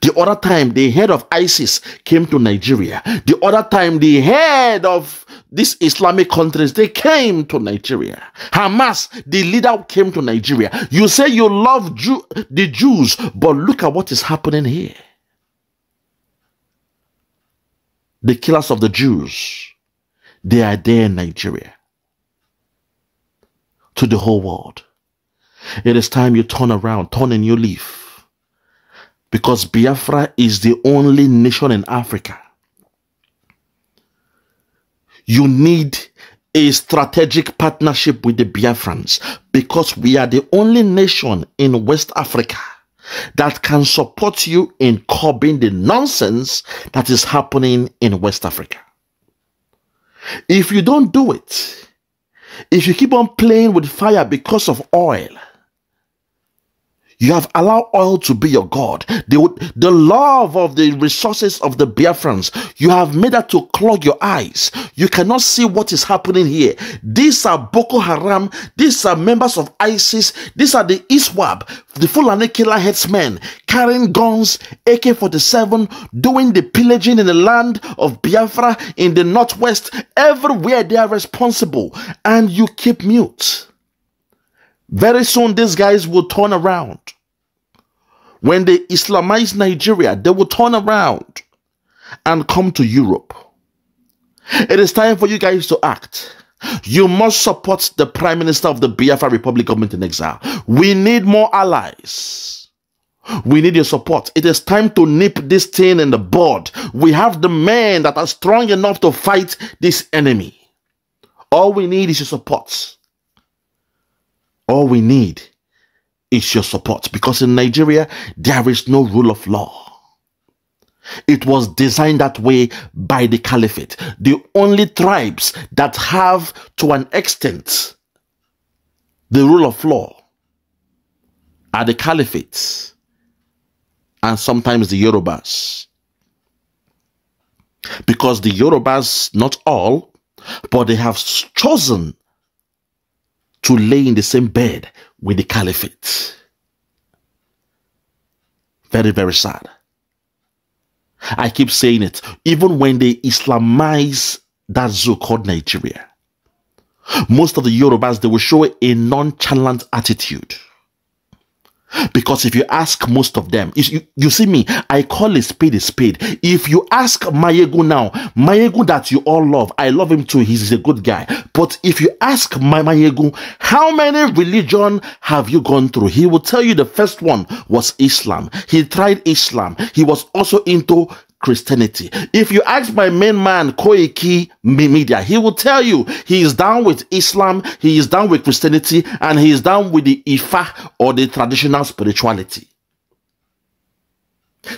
The other time, the head of ISIS came to Nigeria. The other time, the head of these Islamic countries, they came to Nigeria. Hamas, the leader came to Nigeria. You say you love Jew the Jews, but look at what is happening here. The killers of the Jews, they are there in Nigeria. To the whole world. It is time you turn around, turn a new leaf because Biafra is the only nation in Africa. You need a strategic partnership with the Biafrans because we are the only nation in West Africa that can support you in curbing the nonsense that is happening in West Africa. If you don't do it, if you keep on playing with fire because of oil, you have allowed oil to be your God. The, the love of the resources of the Biafrans, you have made that to clog your eyes. You cannot see what is happening here. These are Boko Haram. These are members of ISIS. These are the ISWAB, the Fulani killer headsmen, carrying guns, AK-47, doing the pillaging in the land of Biafra, in the northwest. Everywhere they are responsible. And you keep mute. Very soon, these guys will turn around. When they Islamize Nigeria, they will turn around and come to Europe. It is time for you guys to act. You must support the Prime Minister of the Biafra Republic government in exile. We need more allies. We need your support. It is time to nip this thing in the bud. We have the men that are strong enough to fight this enemy. All we need is your support all we need is your support because in Nigeria, there is no rule of law. It was designed that way by the caliphate. The only tribes that have, to an extent, the rule of law are the caliphates and sometimes the Yorubas. Because the Yorubas, not all, but they have chosen to lay in the same bed with the caliphate. Very, very sad. I keep saying it, even when they Islamize that zoo called Nigeria, most of the Yorubas, they will show a nonchalant attitude. Because if you ask most of them, you, you see me, I call a spade a spade. If you ask Mayegu now, Mayegu that you all love, I love him too, he's a good guy. But if you ask my Mayegu, how many religion have you gone through? He will tell you the first one was Islam. He tried Islam. He was also into Christianity. If you ask my main man, Koiki Media, he will tell you he is down with Islam, he is down with Christianity, and he is down with the Ifa or the traditional spirituality.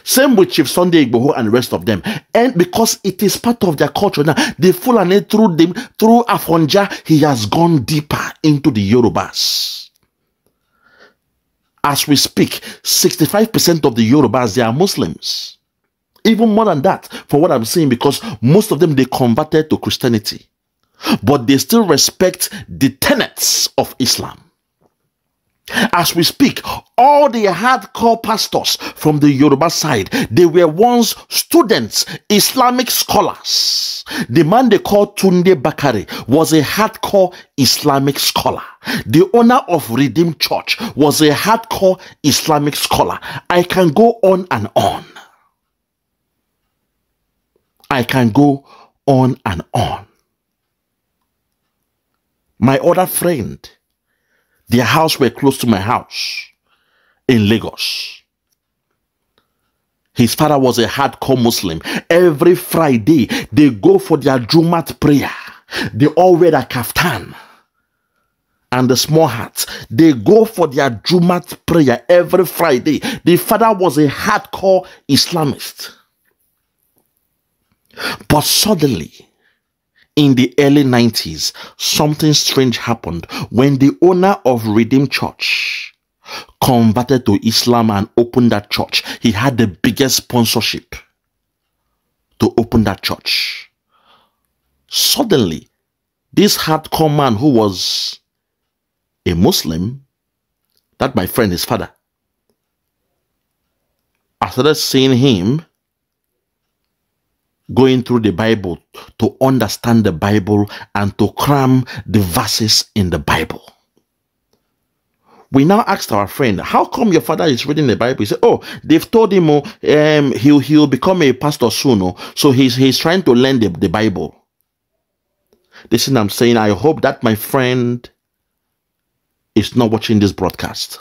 Same with Chief Sunday Igboho and the rest of them. And because it is part of their culture now, they Fulani through them, through Afonja, he has gone deeper into the Yorubas. As we speak, 65% of the Yorubas, they are Muslims even more than that, for what I'm saying, because most of them they converted to Christianity, but they still respect the tenets of Islam. As we speak, all the hardcore pastors from the Yoruba side, they were once students, Islamic scholars. The man they called Tunde Bakari was a hardcore Islamic scholar. The owner of Redeemed Church was a hardcore Islamic scholar. I can go on and on. I can go on and on. My other friend, their house were close to my house in Lagos. His father was a hardcore Muslim. Every Friday, they go for their Jumat prayer. They all wear a kaftan and the small hat. They go for their Jumat prayer every Friday. The father was a hardcore Islamist. But suddenly, in the early 90s, something strange happened when the owner of Redeemed Church converted to Islam and opened that church. He had the biggest sponsorship to open that church. Suddenly, this hardcore man who was a Muslim, that my friend, his father, I started seeing him going through the Bible to understand the Bible and to cram the verses in the Bible. We now asked our friend, how come your father is reading the Bible? He said, oh, they've told him oh, um, he'll, he'll become a pastor soon. Oh, so he's, he's trying to learn the, the Bible. This is I'm saying. I hope that my friend is not watching this broadcast.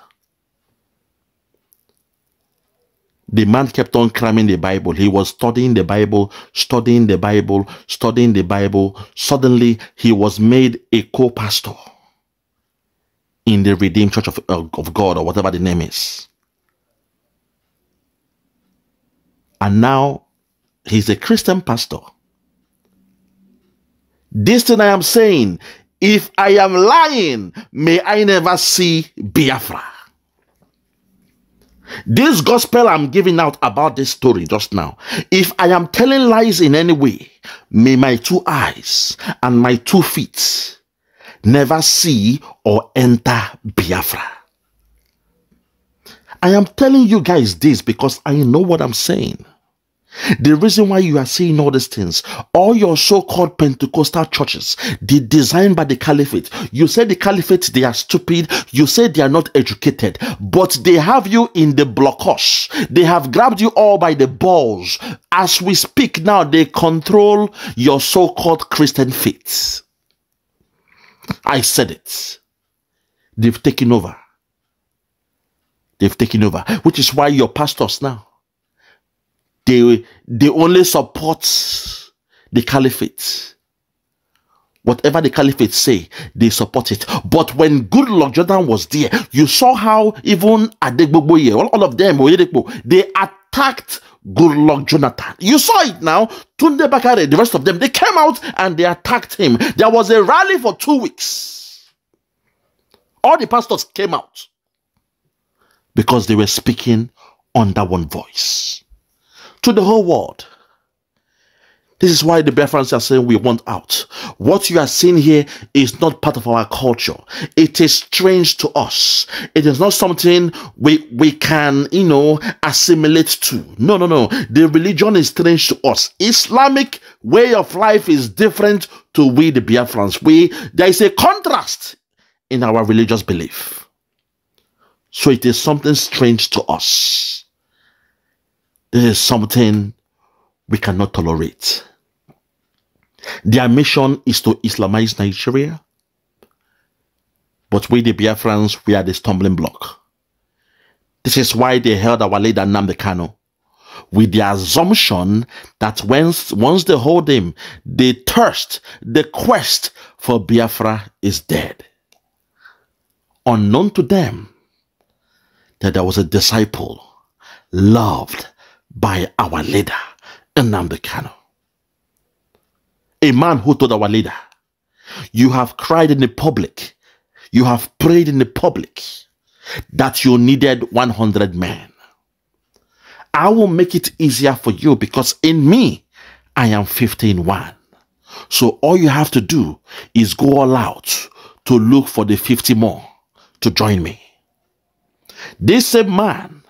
the man kept on cramming the Bible. He was studying the Bible, studying the Bible, studying the Bible. Suddenly, he was made a co-pastor in the Redeemed Church of, uh, of God or whatever the name is. And now, he's a Christian pastor. This thing I am saying, if I am lying, may I never see Biafra. This gospel I'm giving out about this story just now, if I am telling lies in any way, may my two eyes and my two feet never see or enter Biafra. I am telling you guys this because I know what I'm saying. The reason why you are seeing all these things, all your so-called Pentecostal churches, the designed by the caliphate. You say the caliphate, they are stupid. You say they are not educated, but they have you in the blockhouse. They have grabbed you all by the balls. As we speak now, they control your so-called Christian faith. I said it. They've taken over. They've taken over, which is why your pastors now they they only support the caliphate whatever the caliphate say they support it but when good luck jordan was there you saw how even adegbogboye all, all of them they attacked good luck jonathan you saw it now tunde bakare the rest of them they came out and they attacked him there was a rally for two weeks all the pastors came out because they were speaking under one voice to the whole world. This is why the Biafrans are saying we want out. What you are seeing here is not part of our culture. It is strange to us. It is not something we we can, you know, assimilate to. No, no, no. The religion is strange to us. Islamic way of life is different to we the Biafrans. We there is a contrast in our religious belief. So it is something strange to us. This is something we cannot tolerate. Their mission is to Islamize Nigeria. But we, the Biafrans, we are the stumbling block. This is why they held our leader the canal, with the assumption that once, once they hold him, the thirst, the quest for Biafra is dead. Unknown to them, that there was a disciple loved by our leader, the Kano. A man who told our leader, you have cried in the public, you have prayed in the public that you needed 100 men. I will make it easier for you because in me, I am 15 one. So all you have to do is go all out to look for the 50 more to join me. This same man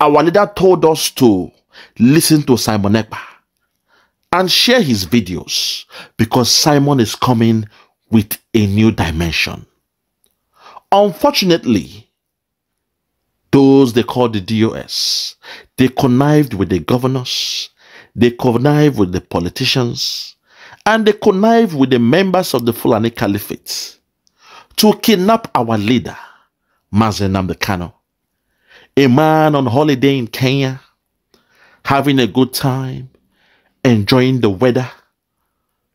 our leader told us to listen to Simon Ekpa and share his videos because Simon is coming with a new dimension. Unfortunately, those they call the DOS, they connived with the governors, they connived with the politicians, and they connived with the members of the Fulani Caliphate to kidnap our leader, Mazen Namdekano a man on holiday in Kenya, having a good time, enjoying the weather,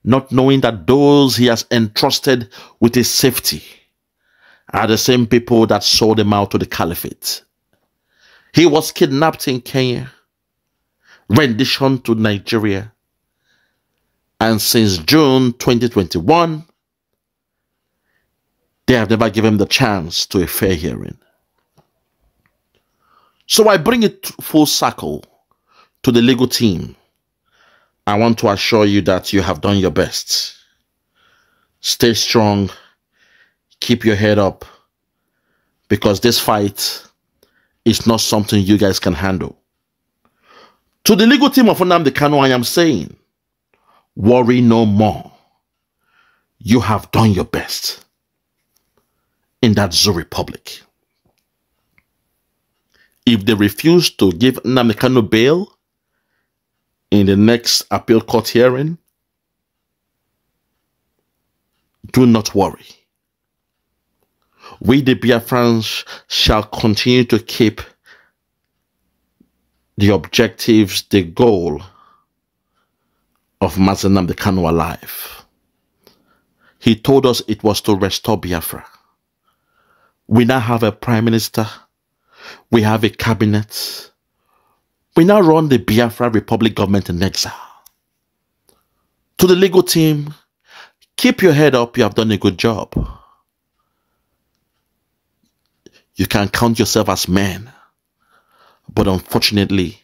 not knowing that those he has entrusted with his safety are the same people that sold him out to the caliphate. He was kidnapped in Kenya, rendition to Nigeria, and since June 2021, they have never given him the chance to a fair hearing. So I bring it full circle to the legal team. I want to assure you that you have done your best. Stay strong. Keep your head up. Because this fight is not something you guys can handle. To the legal team of the Kano, I am saying, worry no more. You have done your best in that Zoo Republic if they refuse to give Namikano bail in the next appeal court hearing, do not worry. We, the Biafrans, shall continue to keep the objectives, the goal of Mazenam the alive. He told us it was to restore Biafra. We now have a prime minister we have a cabinet. We now run the Biafra Republic government in exile. To the legal team, keep your head up. You have done a good job. You can count yourself as men. But unfortunately,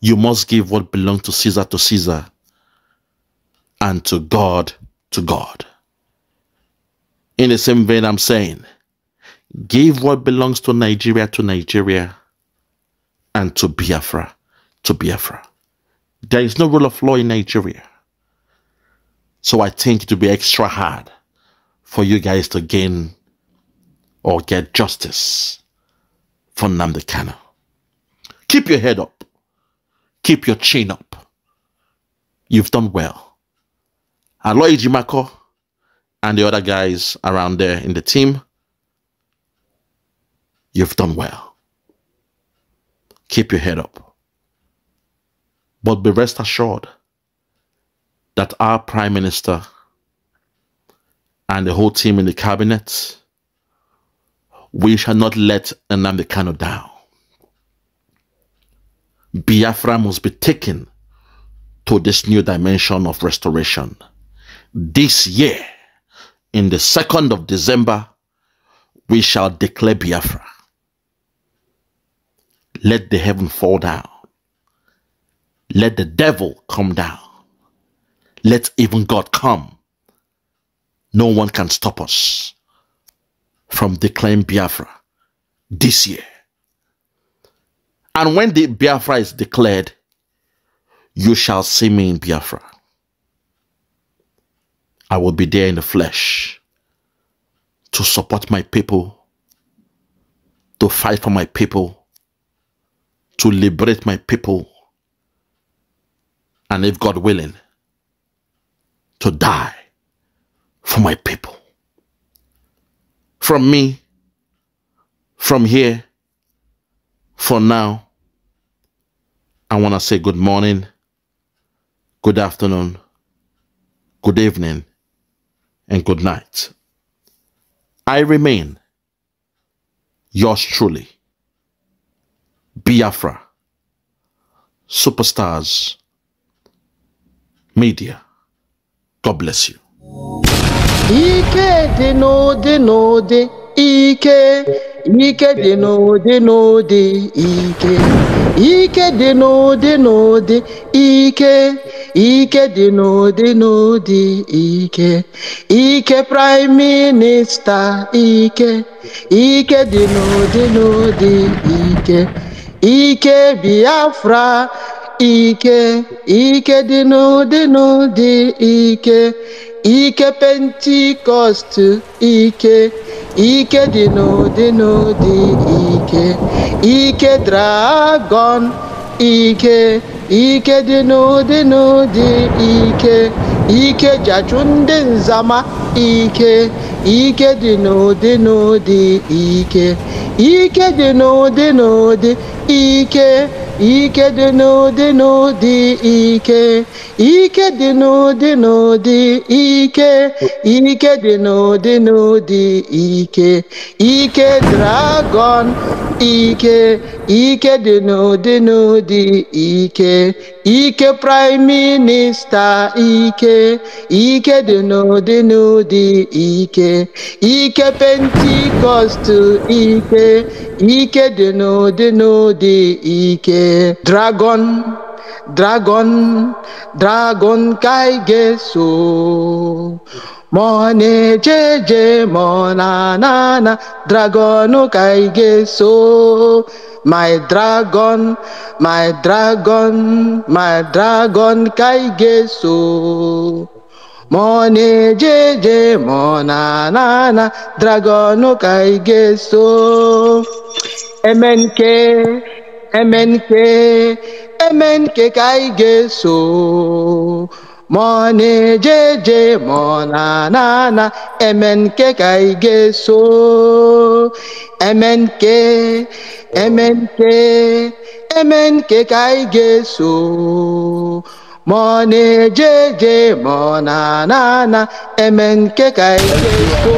you must give what belongs to Caesar to Caesar and to God to God. In the same vein, I'm saying, Give what belongs to Nigeria to Nigeria and to Biafra to Biafra. There is no rule of law in Nigeria. So I think it will be extra hard for you guys to gain or get justice for Namdekano. Keep your head up. Keep your chin up. You've done well. Aloy Jimako and the other guys around there in the team You've done well. Keep your head up. But be rest assured that our Prime Minister and the whole team in the cabinet, we shall not let Nnamdi down. Biafra must be taken to this new dimension of restoration. This year, in the 2nd of December, we shall declare Biafra. Let the heaven fall down. Let the devil come down. Let even God come. No one can stop us from declaring Biafra this year. And when the Biafra is declared, you shall see me in Biafra. I will be there in the flesh to support my people, to fight for my people, to liberate my people and if God willing, to die for my people. From me, from here, for now, I want to say good morning, good afternoon, good evening, and good night. I remain yours truly. Biafra, superstars, media. God bless you. Ike dị n'ụdị n'ụdị ike ike dị n'ụdị n'ụdị ike ike dị n'ụdị n'ụdị ike ike dị n'ụdị n'ụdị ike ike prime Minister ike ike dị n'ụdị n'ụdị ike ike biafra ike ike dị n'ụdị n'ụdị ike ike pentikọst ike ike dị n'ụdị n'ụdị ike ike dragọn ike ike dị n'ụdị n'ụdị ike ike jachụ ndị nzama ike ike dị n'ụdị n'ụdị ike ike dị n'ụdị n'ụdị ike ike dị n'ụdị n'ụdị ike ike dị n'ụdị n'ụdị ike ike dị n'ụdị n'ụdị ike ike dragọn ike ike dị n'ụdị n'ụdị ike ike praịm minista ike ike dị n'ụdị n'ụdị ike ike pentikọst ike ike deno deno de ike dragon dragon dragon kai geso ga ga-eso mona na na dragon kai geso my dragon my dragon my dragon kai geso. Money JJ Monanana Dragon Kai Geso MNK MNK MNK Kai Geso Money JJ Monanana MNK Kai Geso MNK MNK MNK Kai Geso ma na-eje eje ma ọ na-ana ana eme nke ka ike